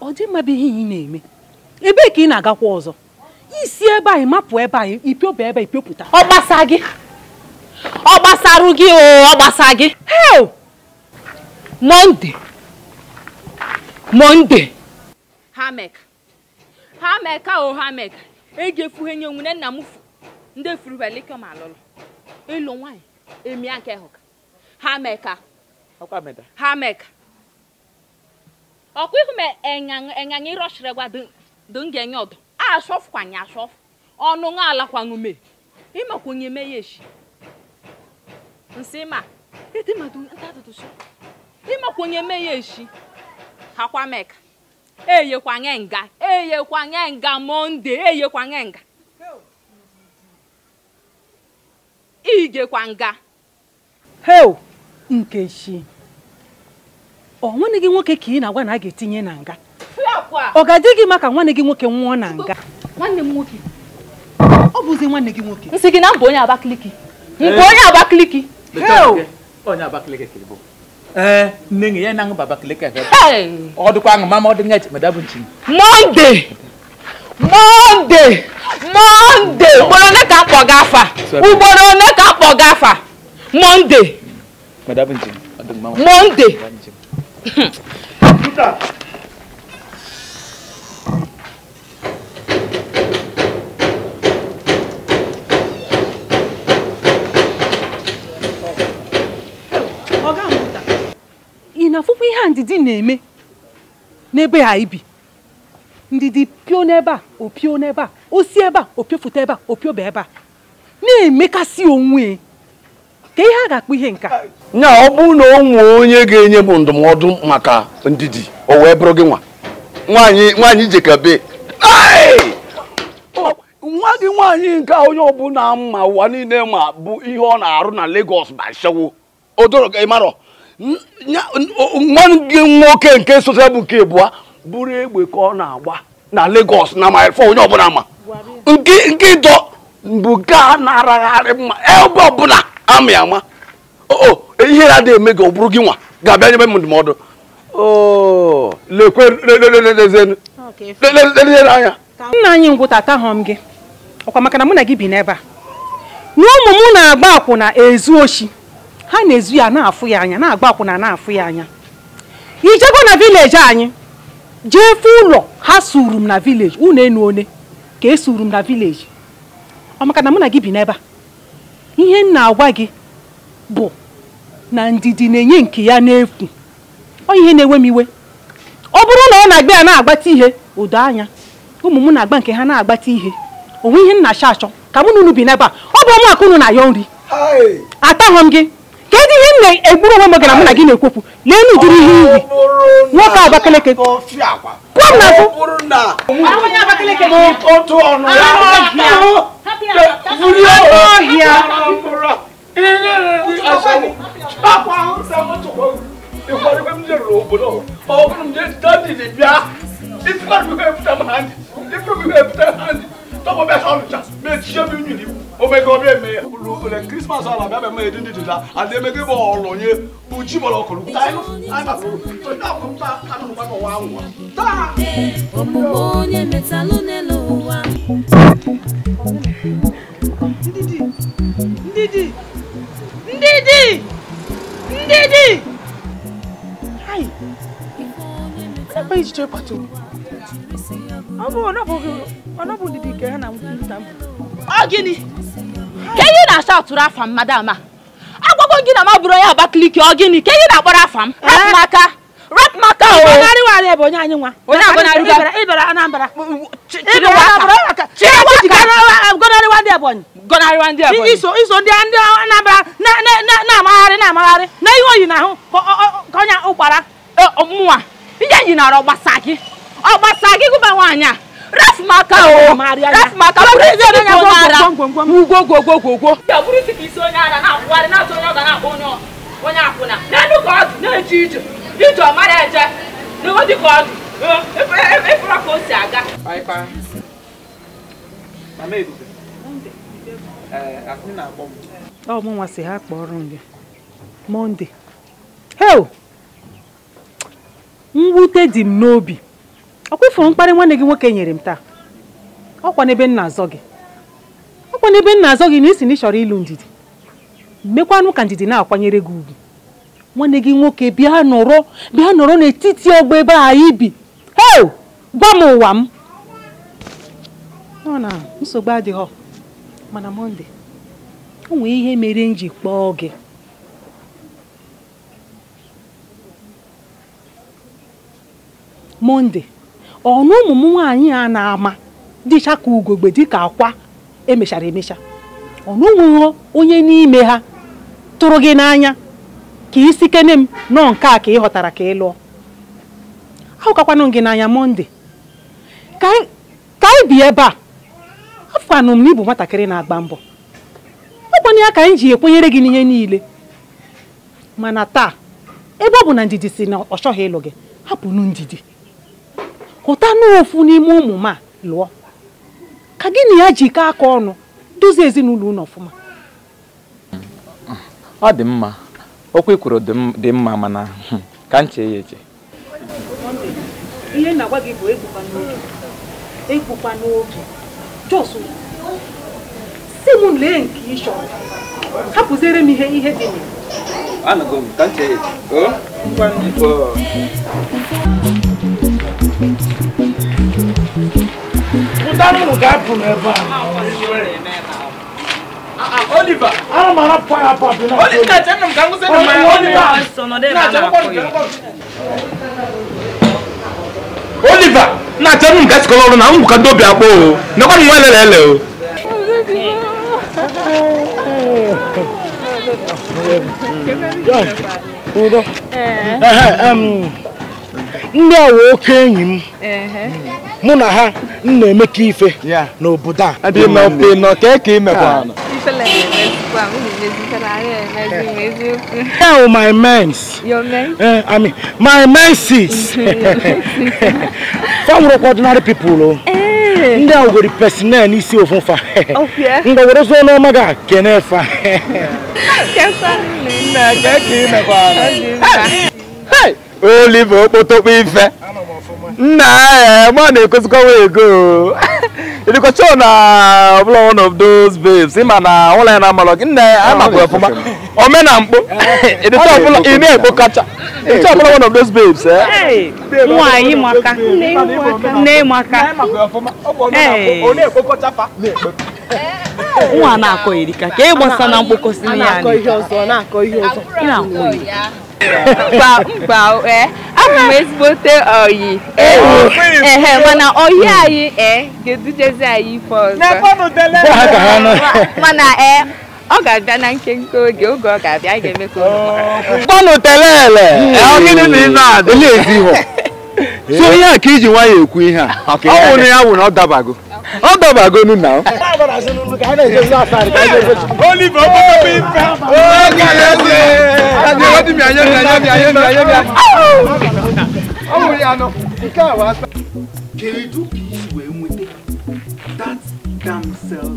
ọ dị mma bụ ihe ị na-eme ebee ka ị na-agakwa ọzọ si ebe anyị mapụ ebe anyị ipiọba ebe ipiopụta ọ gbasa gị ọ gbasarụ gị o ọ gbasa gị hel monde monde hamek hameka o hamek eji efuhe nye nwunye nna m ndị efurubelikọ ma alụlụ ịlụ nwaanyị emia nke hụka hameka hameka ọkwa ihu ma enyaṅa ịrọchiri gwa dị ngenye ọdụ ashofu kwanye ashofu ọnụ nwa ala kwaṅume imakwunye me yeshi nsima etimatuntatatuso imakwunye me yeshi hakwameka eyekwange nga eyekwange nga monde eyekwange nga igekwa nga heu nkechi ọ nwanne gị nwoke ka ị na-agwa na a ga-etinye na nga ọ ga-adị gị maka nwanne gị nwoke nwụọ na nga nwanne m nwoke ọ bụzi nwanne gị nwoke nsị gị na mbụ onye abakiliki. Eh. nke onye abakiliki. onye Abakaliki ka ịbụ ee eh, nne gị ya na aṅụba Abakaliki ka ọ dịkwa aṅụ mama ọ dị nga echemada bụ nchi mọnde mọnde. monde ugboro one ka akpọ gị afa ugboro one ka akpọ gị afa mọnde. monde na afụfụ ihe ndidi na-eme n'ebe ha ibi ndidi pio n'ebe a opio n'ebe a osi ebe a opiofụta ebe a opioba ebe a na-emekasị onwe ka ihe a ga-akpọ ihe nka nya ọ bụrụ na ọ nwee onye ga-enye bụ ndụmọdụ maka ndidi o wee bụrụ gị nwa nwaanyị jekabe nwa gị nwaanyị nke onye ọbụla mma ụwa niile ma bụ ihe ọ na-arụ na Lagos ma shewo odoro ịmarọ nwa gị nwoke nke sosa bụ nke bụa bụrụ egbe ka ọ na-agba na Lagos na mile four onye ọbụla ma nke ịdọ bụ nke a na araghari mma ebe ọbụla amị ama o ihe ya adịghị eme gị ọ bụrụ gị nwa ga-abịa nyebe m ndụmọdụ anya nna anyị ngwụta atahọm gị ọkwa maka na mụ na gị bi n'ebe a na ụmụ m na-agba akwụna ezu oshi ha na-ezu ya na-afụ ya anya na-agba akwụna na-afụ ya anya ijego na vileji anyị jee fụ ụlọ ha suru m na vileji unu enu one ka esuru m na vileji ọ maka na mụ na gị bi n'ebe a ihe m na-agwa gị bụ na ndidi na-enye nke ya n'efu ọ ihe na enwe m iwe ọ bụrụ na ọ na-agba ya na-agbata ihe udo anya ụmụ m na-agba nke ha na-agbata ihe onwe ihe m na-achọ achọ ka mụ na unu bi n'ebe a ọ bụ ọmụ unu na ya nri ataghọ m gị kedu ihe nna egburu onwe m gara mụ na gị na-ekwopụ lee na ụdịrị ihe iyi nwoke Abakaliki pụọ m n'azụ ọhịa tọkọ bẹ sọ ọlùjà mẹ tiẹ mi nyini o mẹ gọ bẹ mẹ lẹ christmas ala bẹ bẹ la ale mẹ kébọ ọlọ nye o ji bọ lọ kọlu ta yẹ ayi ma fọ o ta fọ ta kanu ma ndidi ndidi ndidi ndidi ayi ẹ bẹ yìí jẹ pàtó. ọ gịnị ka ihe na-asa atụrụ afa m madam a agwago gị na m abụrụ onye Abakaliki ọ gịnị ka ihe na-akpọrọ afa m rapụ m aka rapụ m aka gọnarịwa ndị Ebonyi iso ndị Anambra na-amagharị na-amagharị na ihe oyi na ahụ ka onye ụkpara eh, mụnwa ihe e yi nara ọ gbasa gị ọ gbasara gị gụba nwaanyị a rafu m aka o rafu m aka ọ bụrụ isi onye agwọ ara ugwo gwo gwo gwo gwo ọ bụrụ isi ka isi onye ara na-akwụgharị na-atụ onye ọ ga na-akpọ onye onye akwụna n'elu ka ọdụ na-eje ije ije ọ mara eje n'ụwa dị ka ọdụ efere ka o si aga ọ mụ nwa si ha kpọrọ m gị monde heo mwute dị m n'obi ọ kwụfụrụ mkparị nwanne gị nwoke nyere m taa ọkwa n'ebe nna azọ gị ọkwa n'ebe nna azọ gị na isi na ị chọrọ ịlụ ndidi mekwanụ ka ndidi na-akwanyere gị ugwu nwanne gị nwoke bịa nọrọ bịa nọrọ n'etiti ọgba ebe a ibi heo gwa m ụwa m ọ na nsogbu adịghọ mana mọnde o nwee ihe mere m ji kpọọ gị mọnde ọnụ ụmụ m nwaanyị a na-ama dịcha ka ugogbe dịka akwa emechara emecha ọnụ nwụghọ onye n'ime ha tụrụ gị n'anya ka isi kene m nọọ nke a ka ị ghọtara ka ị lụọ ahụkakwanụ gị n'anya mọnde ka anyị bi ebe a afụkwanụ m na ịbụ nwatakịrị na-agba mbọ ọkwana ya ka anyị ji ekwenyere gị n'ihe niile mana taa ebe ọ bụ na ndidi si na ọ chọghị ịlụ gị hapụnụ ndidi hụta n'ofu n'ime ụmụ m a lụọ ka gị na ya ji aka ọnụ duzie ezinụlọ unu ọfụma ọ dị mma okwu kwuru dị mma mana hmm, ka m chee ya eche ihe na-agwa gị bụ egbukwa n'oge egbukwa n'oge jos si m lee nke ị chọrọ hapụziere m ihe ihe dị n'ime m ya Danny will get from ever. Ah, ah, Oliver, I'm not a fire pop. Oliver, I'm going to say, Oliver, Oliver, na tell him get color na ngu ka do bia po na ko nwa lele lele oh. um, o eh eh um ndị a wo oke enyi mụ na ha m na-emekọ ife n'obodo a my mens eh, my menses fanwụrụkwa ordinary people oh. eh. ndị a were personel n'isi ofufa oh, ngwawerezuo n'ọma ga kene fa olive okpotokpo ife nna eh, ma na-ekwesịkọwa ego ịdịkọcha na ọbụla one of those babes ịma na ụlọ ya na-amalọ gị nna ya amakwara ọfụma omena mkpo ịdịcha ọbụla ị na-ekpo kacha ịdịcha ọbụla one of those babes eh? nwaanyị maka nne maka nwa na-akọ erika ka ị gbasa na mkpokọsi ya na-akọ ihe ọzọ na-akọ ihe ọzọ mkpa eh. abụ m ezigbote oyi ehe mana oyi anyị ee eh, ga-edujezi anyị ife ọzọ mana eh, ọ ga-abịa na nkenke oge oge ọ ga-abịa anyị ga-eme ka kpọnụ telele so ihe a iji nwayọ ekwu ihe a ọ wụrụ ya wụ na ọ dabago How come I go in now? Holy Bobo Pimpa! Oh, Kayode! Kayode, what do you mean? Ayemi, Ayemi, Ayemi, Ayemi. Oh, Yano. Ikawa. Keredu kiwe mwete. That damn self.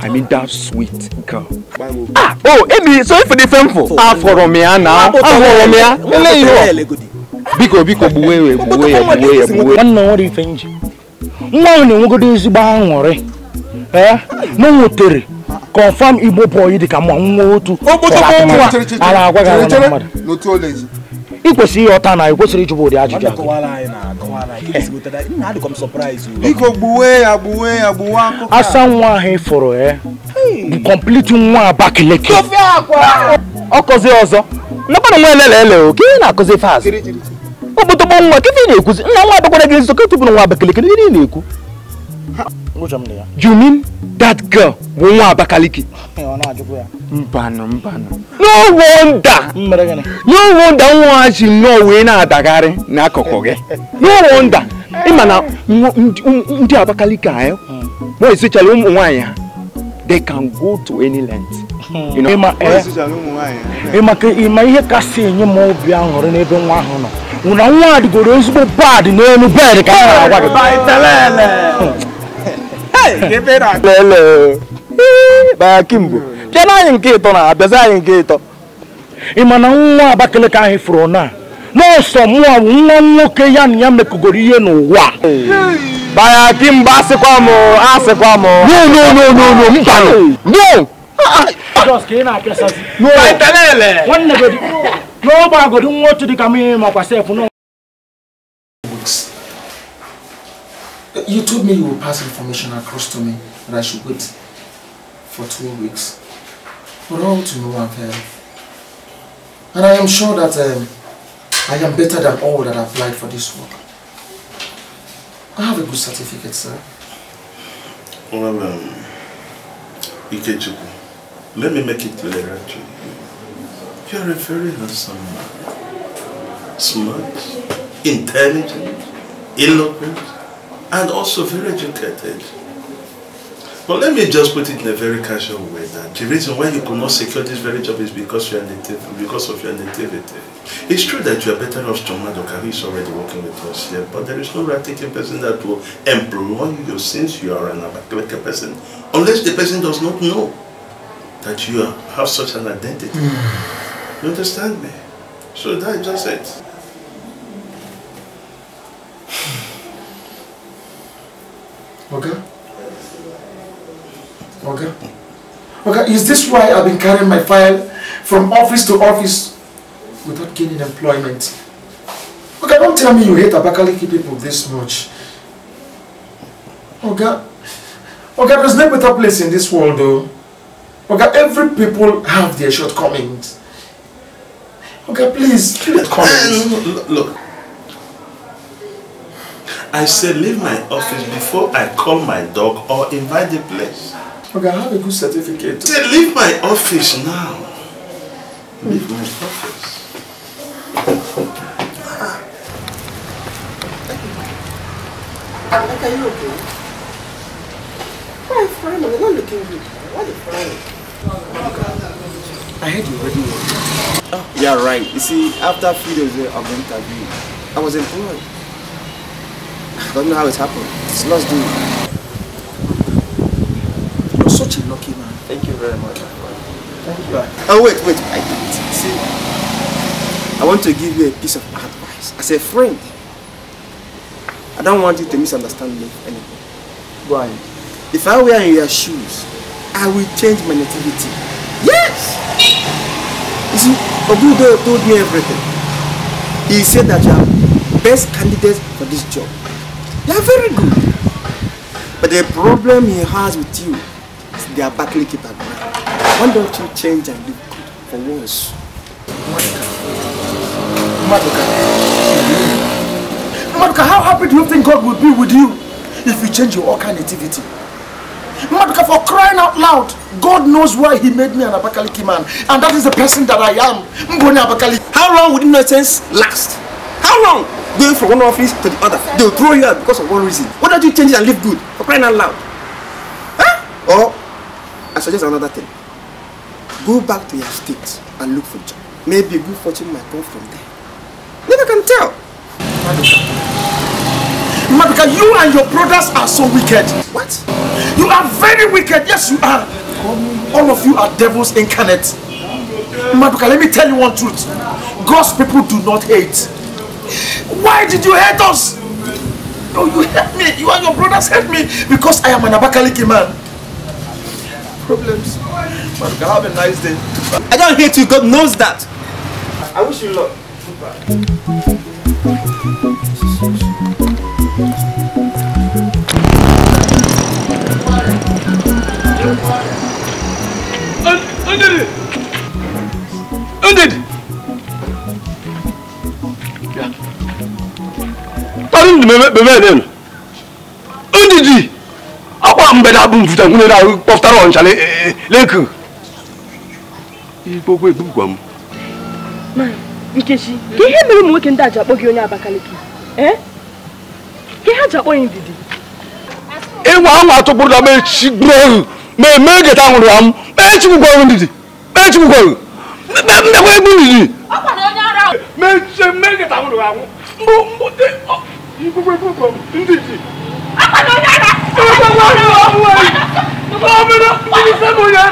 I mean that sweet girl. Ah, oh, Emi, sorry for the phone for? Ah, for Romea now. Ah, for Romea. Eléyìí o. Biko, biko, buwe, buwe, buwe, buwe. Wannan wani fenji. nwa ahụ na-enwegodo ezigbo aṅụrị ee na o nwetere confam igbo bọyị dị ka ma nwa otu a na-agwa gị na mmadụ ị kwesịrị ihe ọta na ị kwesịrị ụdị ajụjụ asa nwa ahụ ịfụrụ e. ya bụ kọmpliti nwa Abakaliki ọ kọzie ọzọ nakwana nwa elele ele oke na-akụzi fast ọgbọtọgbọ nwa kefe ị na-ekwuzi nna nwa abakwara gị nso ka tụpụrụ nwa abakaliki ihe ị na-ekwu you mean that girl bụ nwa abakaliki mbanụ mbanụ no wonder no wonder nwa ji nnọọ wee na-adagharị n'akụkụ gị no wonder na ndị abakaliki anyị hmm. ụmụ nwaanyị ha they can go to any length hmm. ịma eh, ihe kasị enye m obi aṅụrị n'ebe nwa ahụ nọ nwụna nwa adịgoro ezigbo pad n'elu bed ka a agwa gị kimgbe bịa na anyị nke ịtọ na abịazi anyị nke ịtọ ị ma na nwa Abakaliki anyị fụrụ na n'ọsọ mụọ bụ nwa nwoke ya na ya mekọgoro ihe n'ụwa baya kimgbe asịkwa m asịkwa m no no no no i nọ. You told me you would pass information across to me that I should wait for two weeks. But all to no avail. And I am sure that um, I am better than all that applied for this work. I have a good certificate, sir. Well, um, Ikechukwu, let me make it clear to you. You're a very handsome man. Smart, intelligent, eloquent, and also very educated. But let me just put it in a very casual way that the reason why you could not secure this very job is because, you are native, because of your nativity. It's true that you are better off John Madoka, who is already working with us here, but there is no right-taking person that will employ you since you are an Abakalaka person, unless the person does not know that you have such an identity. Mm. You understand me? So that is just it. Okay. Okay. Okay, is this why I've been carrying my file from office to office without gaining employment? Okay, don't tell me you hate Abakaliki people this much. Okay. Okay, there's no better place in this world though. Okay, every people have their shortcomings. Okay, please, leave comments. Look, I said leave my office before I call my dog or invite the place. Okay, I have a good certificate. Say, leave my office now. Leave my office. Ah. are you okay? Why friend? you are not looking good. Why the you I heard you already Oh. Yeah, right. You see, after few days of the interview, I was employed. I don't know how it happened. It's lost doing. You're such a lucky man. Thank you very much. Thank you. Oh, wait, wait. I did See, I want to give you a piece of advice. As a friend, I don't want you to misunderstand me anymore. Why? If I were in your shoes, I will change my nativity. Yes! You see, Obudo told me everything. He said that you are best candidate for this job. You are very good. But the problem he has with you is they are battling keeper. Why don't you change and look good for once? Maduka. Maduka, how happy do you think God will be with you if you change your all nativity? Madka, for crying out loud, God knows why He made me an Abakaliki man. And that is the person that I am. Mbone Abakaliki. How long would nonsense last? How long? Going from one office to the other. They'll throw you out because of one reason. Why don't you change it and live good? For crying out loud. Huh? Or, I suggest another thing. Go back to your state and look for a job. Maybe good fortune might come from there. Never can tell. Maduka, you and your brothers are so wicked. What? You are very wicked. Yes, you are. All of you are devils incarnate. Maduka, let me tell you one truth. God's people do not hate. Why did you hate us? No, you hate me. You and your brothers hate me because I am an Abakaliki man. Problems. Maduka, have a nice day. I don't hate you. God knows that. I wish you luck. Goodbye. ndi bebe nenu ndidi akwa mbe da bum futa ngune da poftara on chale leku igbo gwe gbugwa m nkechi ka ihe mere ụmụ nwoke ndị a ji akpọ gị onye abakaliki ka ihe a ji akpọ ya ndidi ịnwa anwa atụkpụrụ na mechi gburu ohu ma eme geta nwụrụ ya m mechi gbugwa ohu ndidi mechi gbugwa ohu mmekwa egbu ndidi mechi mme geta nwụrụ ya nwụ mbụ mbụ gbogbo gbogbo ndidi. ọkọ̀ tó yára. ọkọ̀ tó yára. ọmọ mi ló ń bí sẹ́mu yẹn.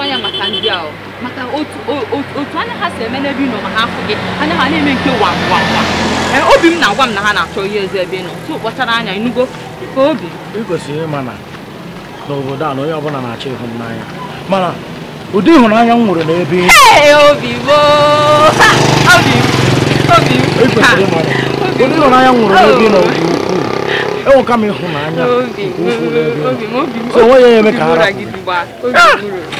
na anya maka ndị a maka otu anya ha si eme n'ebe ị ma ha afụ gị anya ha na-eme nke wa e, obi m na-agwa m na ha na-achọ ihe eze ebe ị nọ tụ kpachara anya ịnụgo e, ka obi ị kwesịrị ịma na n'obodo a na onye ọbụla na-achọ ịhụnanya mana ụdị ịhụnanya m nwere n'ebe ị ụdị ịhụnanya n'ebe ị nọ dị ukwuu enweka m ịhụnanya nke ukwuu n'ebe ị nọ so ya eme ka ha rapụ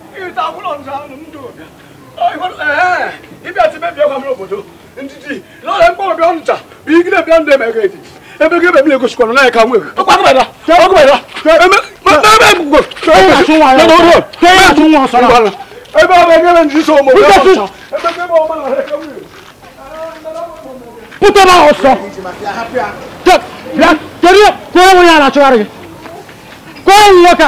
ìta wúlọ̀ ní sáà ń dò ibi àti bẹ́ẹ̀ bẹ́ẹ̀ kwamúlò bòdò ntìtì lọ́la ń gbọ́dọ̀ bí ọ̀n ta bí igi náà bí ọ̀n dẹ̀ mẹ́kẹ́ ti ebe gé bẹ̀mí lè gosi kọ̀nà náà ẹ̀ka wúwo ọkọ̀ akọ̀bẹ̀ la ọkọ̀ bẹ̀ la ẹ̀mẹ́ gbogbo ẹ̀yà tún wọn sọ̀rọ̀ ẹ̀yà tún wọn sọ̀rọ̀ ẹ̀bẹ̀ ọ̀bẹ̀ gẹ́lẹ́ ní sísọ ọmọ ọ̀bẹ̀ ọ̀sán ẹ̀bẹ̀ gẹ́lẹ́ ọmọ ọ̀bẹ̀ Puta na osa. Tek, ya, teriyo, ko wani yana cewa rage. Ko wani yaka.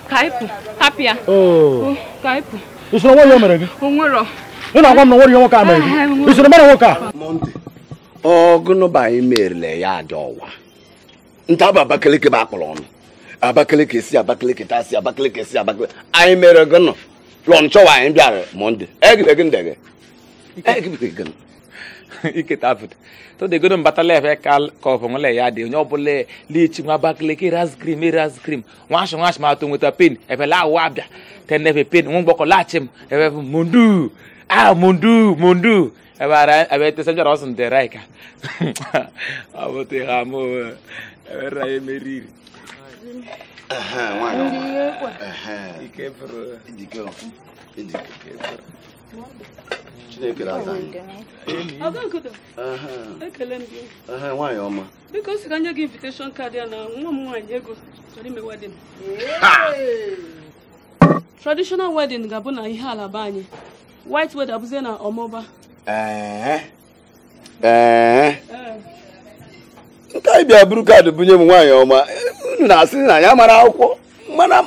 Oh. Oh, ọgụnụba anyị merele ya dị ọwa nta bụ abakeleke bụ akpọrọ ọnụ abakeleke si abakeleke ta si abakeleke si abakeleke anyị mere gụnụ lọnchọwa anyị bịara mọnde egidegị ndege egidegị iketafut to de godon batale fe kal ko fo ngole ya de nyobule li chi ngwa bakle ki ras cream ras cream wash wash ma to ngota pin e fe la wa bia ten ne fe pin ngun boko la chim e fe mundu ah mundu mundu e ba ra e be te sanjo rosun de raika abote ramo e be ra e meriri Aha, wano. Aha. Ike bro. Ike bro. Ike bro. chineke na-aza anyị nwaanyị ọma biko ka nye gị invitation kaadị na nwa m nwaanyị ego chọrọ ime wedin ga-abụ na ihe anyị white wed abụzie na ọmụba nke anyị bịa buru kaadị bunye m nwaanyị ọma unu na-asị na ya mara akwụkwọ mana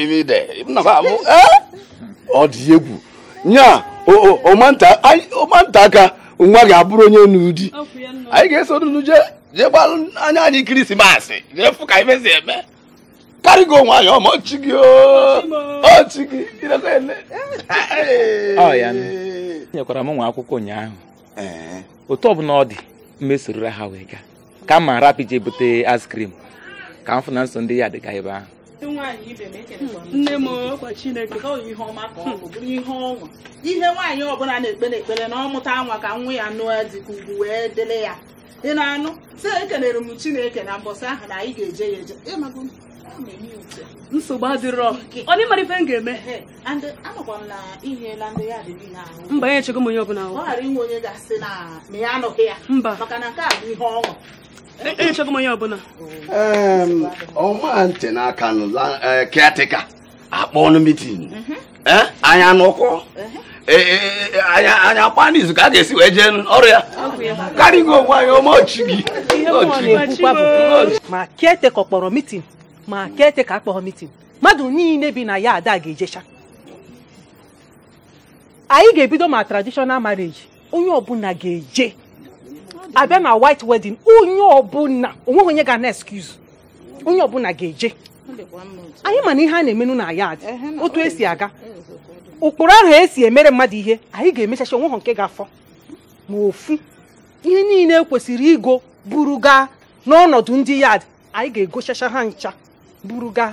ime ide ee ọ dị egwu nya ọmanta aka nwa ga-abụrụ onye n'ụdị anyị ga-eso n'ụdị jee jee gbalụ anya anyị kirisimasị jee fụ ka anyị mezi eme karịgo onwe anyị ọma ọchị gị ọchị gị nyekwara m nwa akwụkwọ ụnyaahụ otu ọbụla ọ dị mmesorora ha wee gaa ka m ma rapị jee bute askrim ka m fụ na nso ndị ya dịga ebe ahụ E hmm. nne m ọkwa chineke ihe nwaanyị ọbụla na-ekpere ekpere na ọ mụta nwa ka nwa ya nụọ dịka ugwu wee dịrị ya ị na-anụ sị ekelere m chineke na mbọsị ahụ na anyị ga-eje ya eje nsogbu adịrọ onye mara ife m ga-eme mba nye chego m onye ọbụla mba ọma ntị n'aka e, caretaker akpọ ọnụ mitin mm-hmm. eh, anya n'ụkwụ mm-hmm. eh, eh, anya akpa n'izu ka a ga-esi wee jee ọrụ ya karịgo onwe anyị ọchị gị ma caretaker kpọrọ mitin ma caretaker akpọghọ mitin mmadụ niile bi na ya ada ga-ejecha anyị ga-ebido ma traditional marriage onye ọbụla ga-eje abịa na white wedding onye ọbụla onweghị onye ga na excuse onye ọbụla ga-eje anyị mana ihe a na-emenu na yad otu esi aga ụkpụrụ eh, eh, eh, ahụ esi emere mmadụ ihe anyị ga-emechacha onweghị nke ga-afọ ma ofu ihe niile kwesịrị igo buru gaa n'ọnọdụ ndị yad anyị ga-egochacha ha ncha buru gaa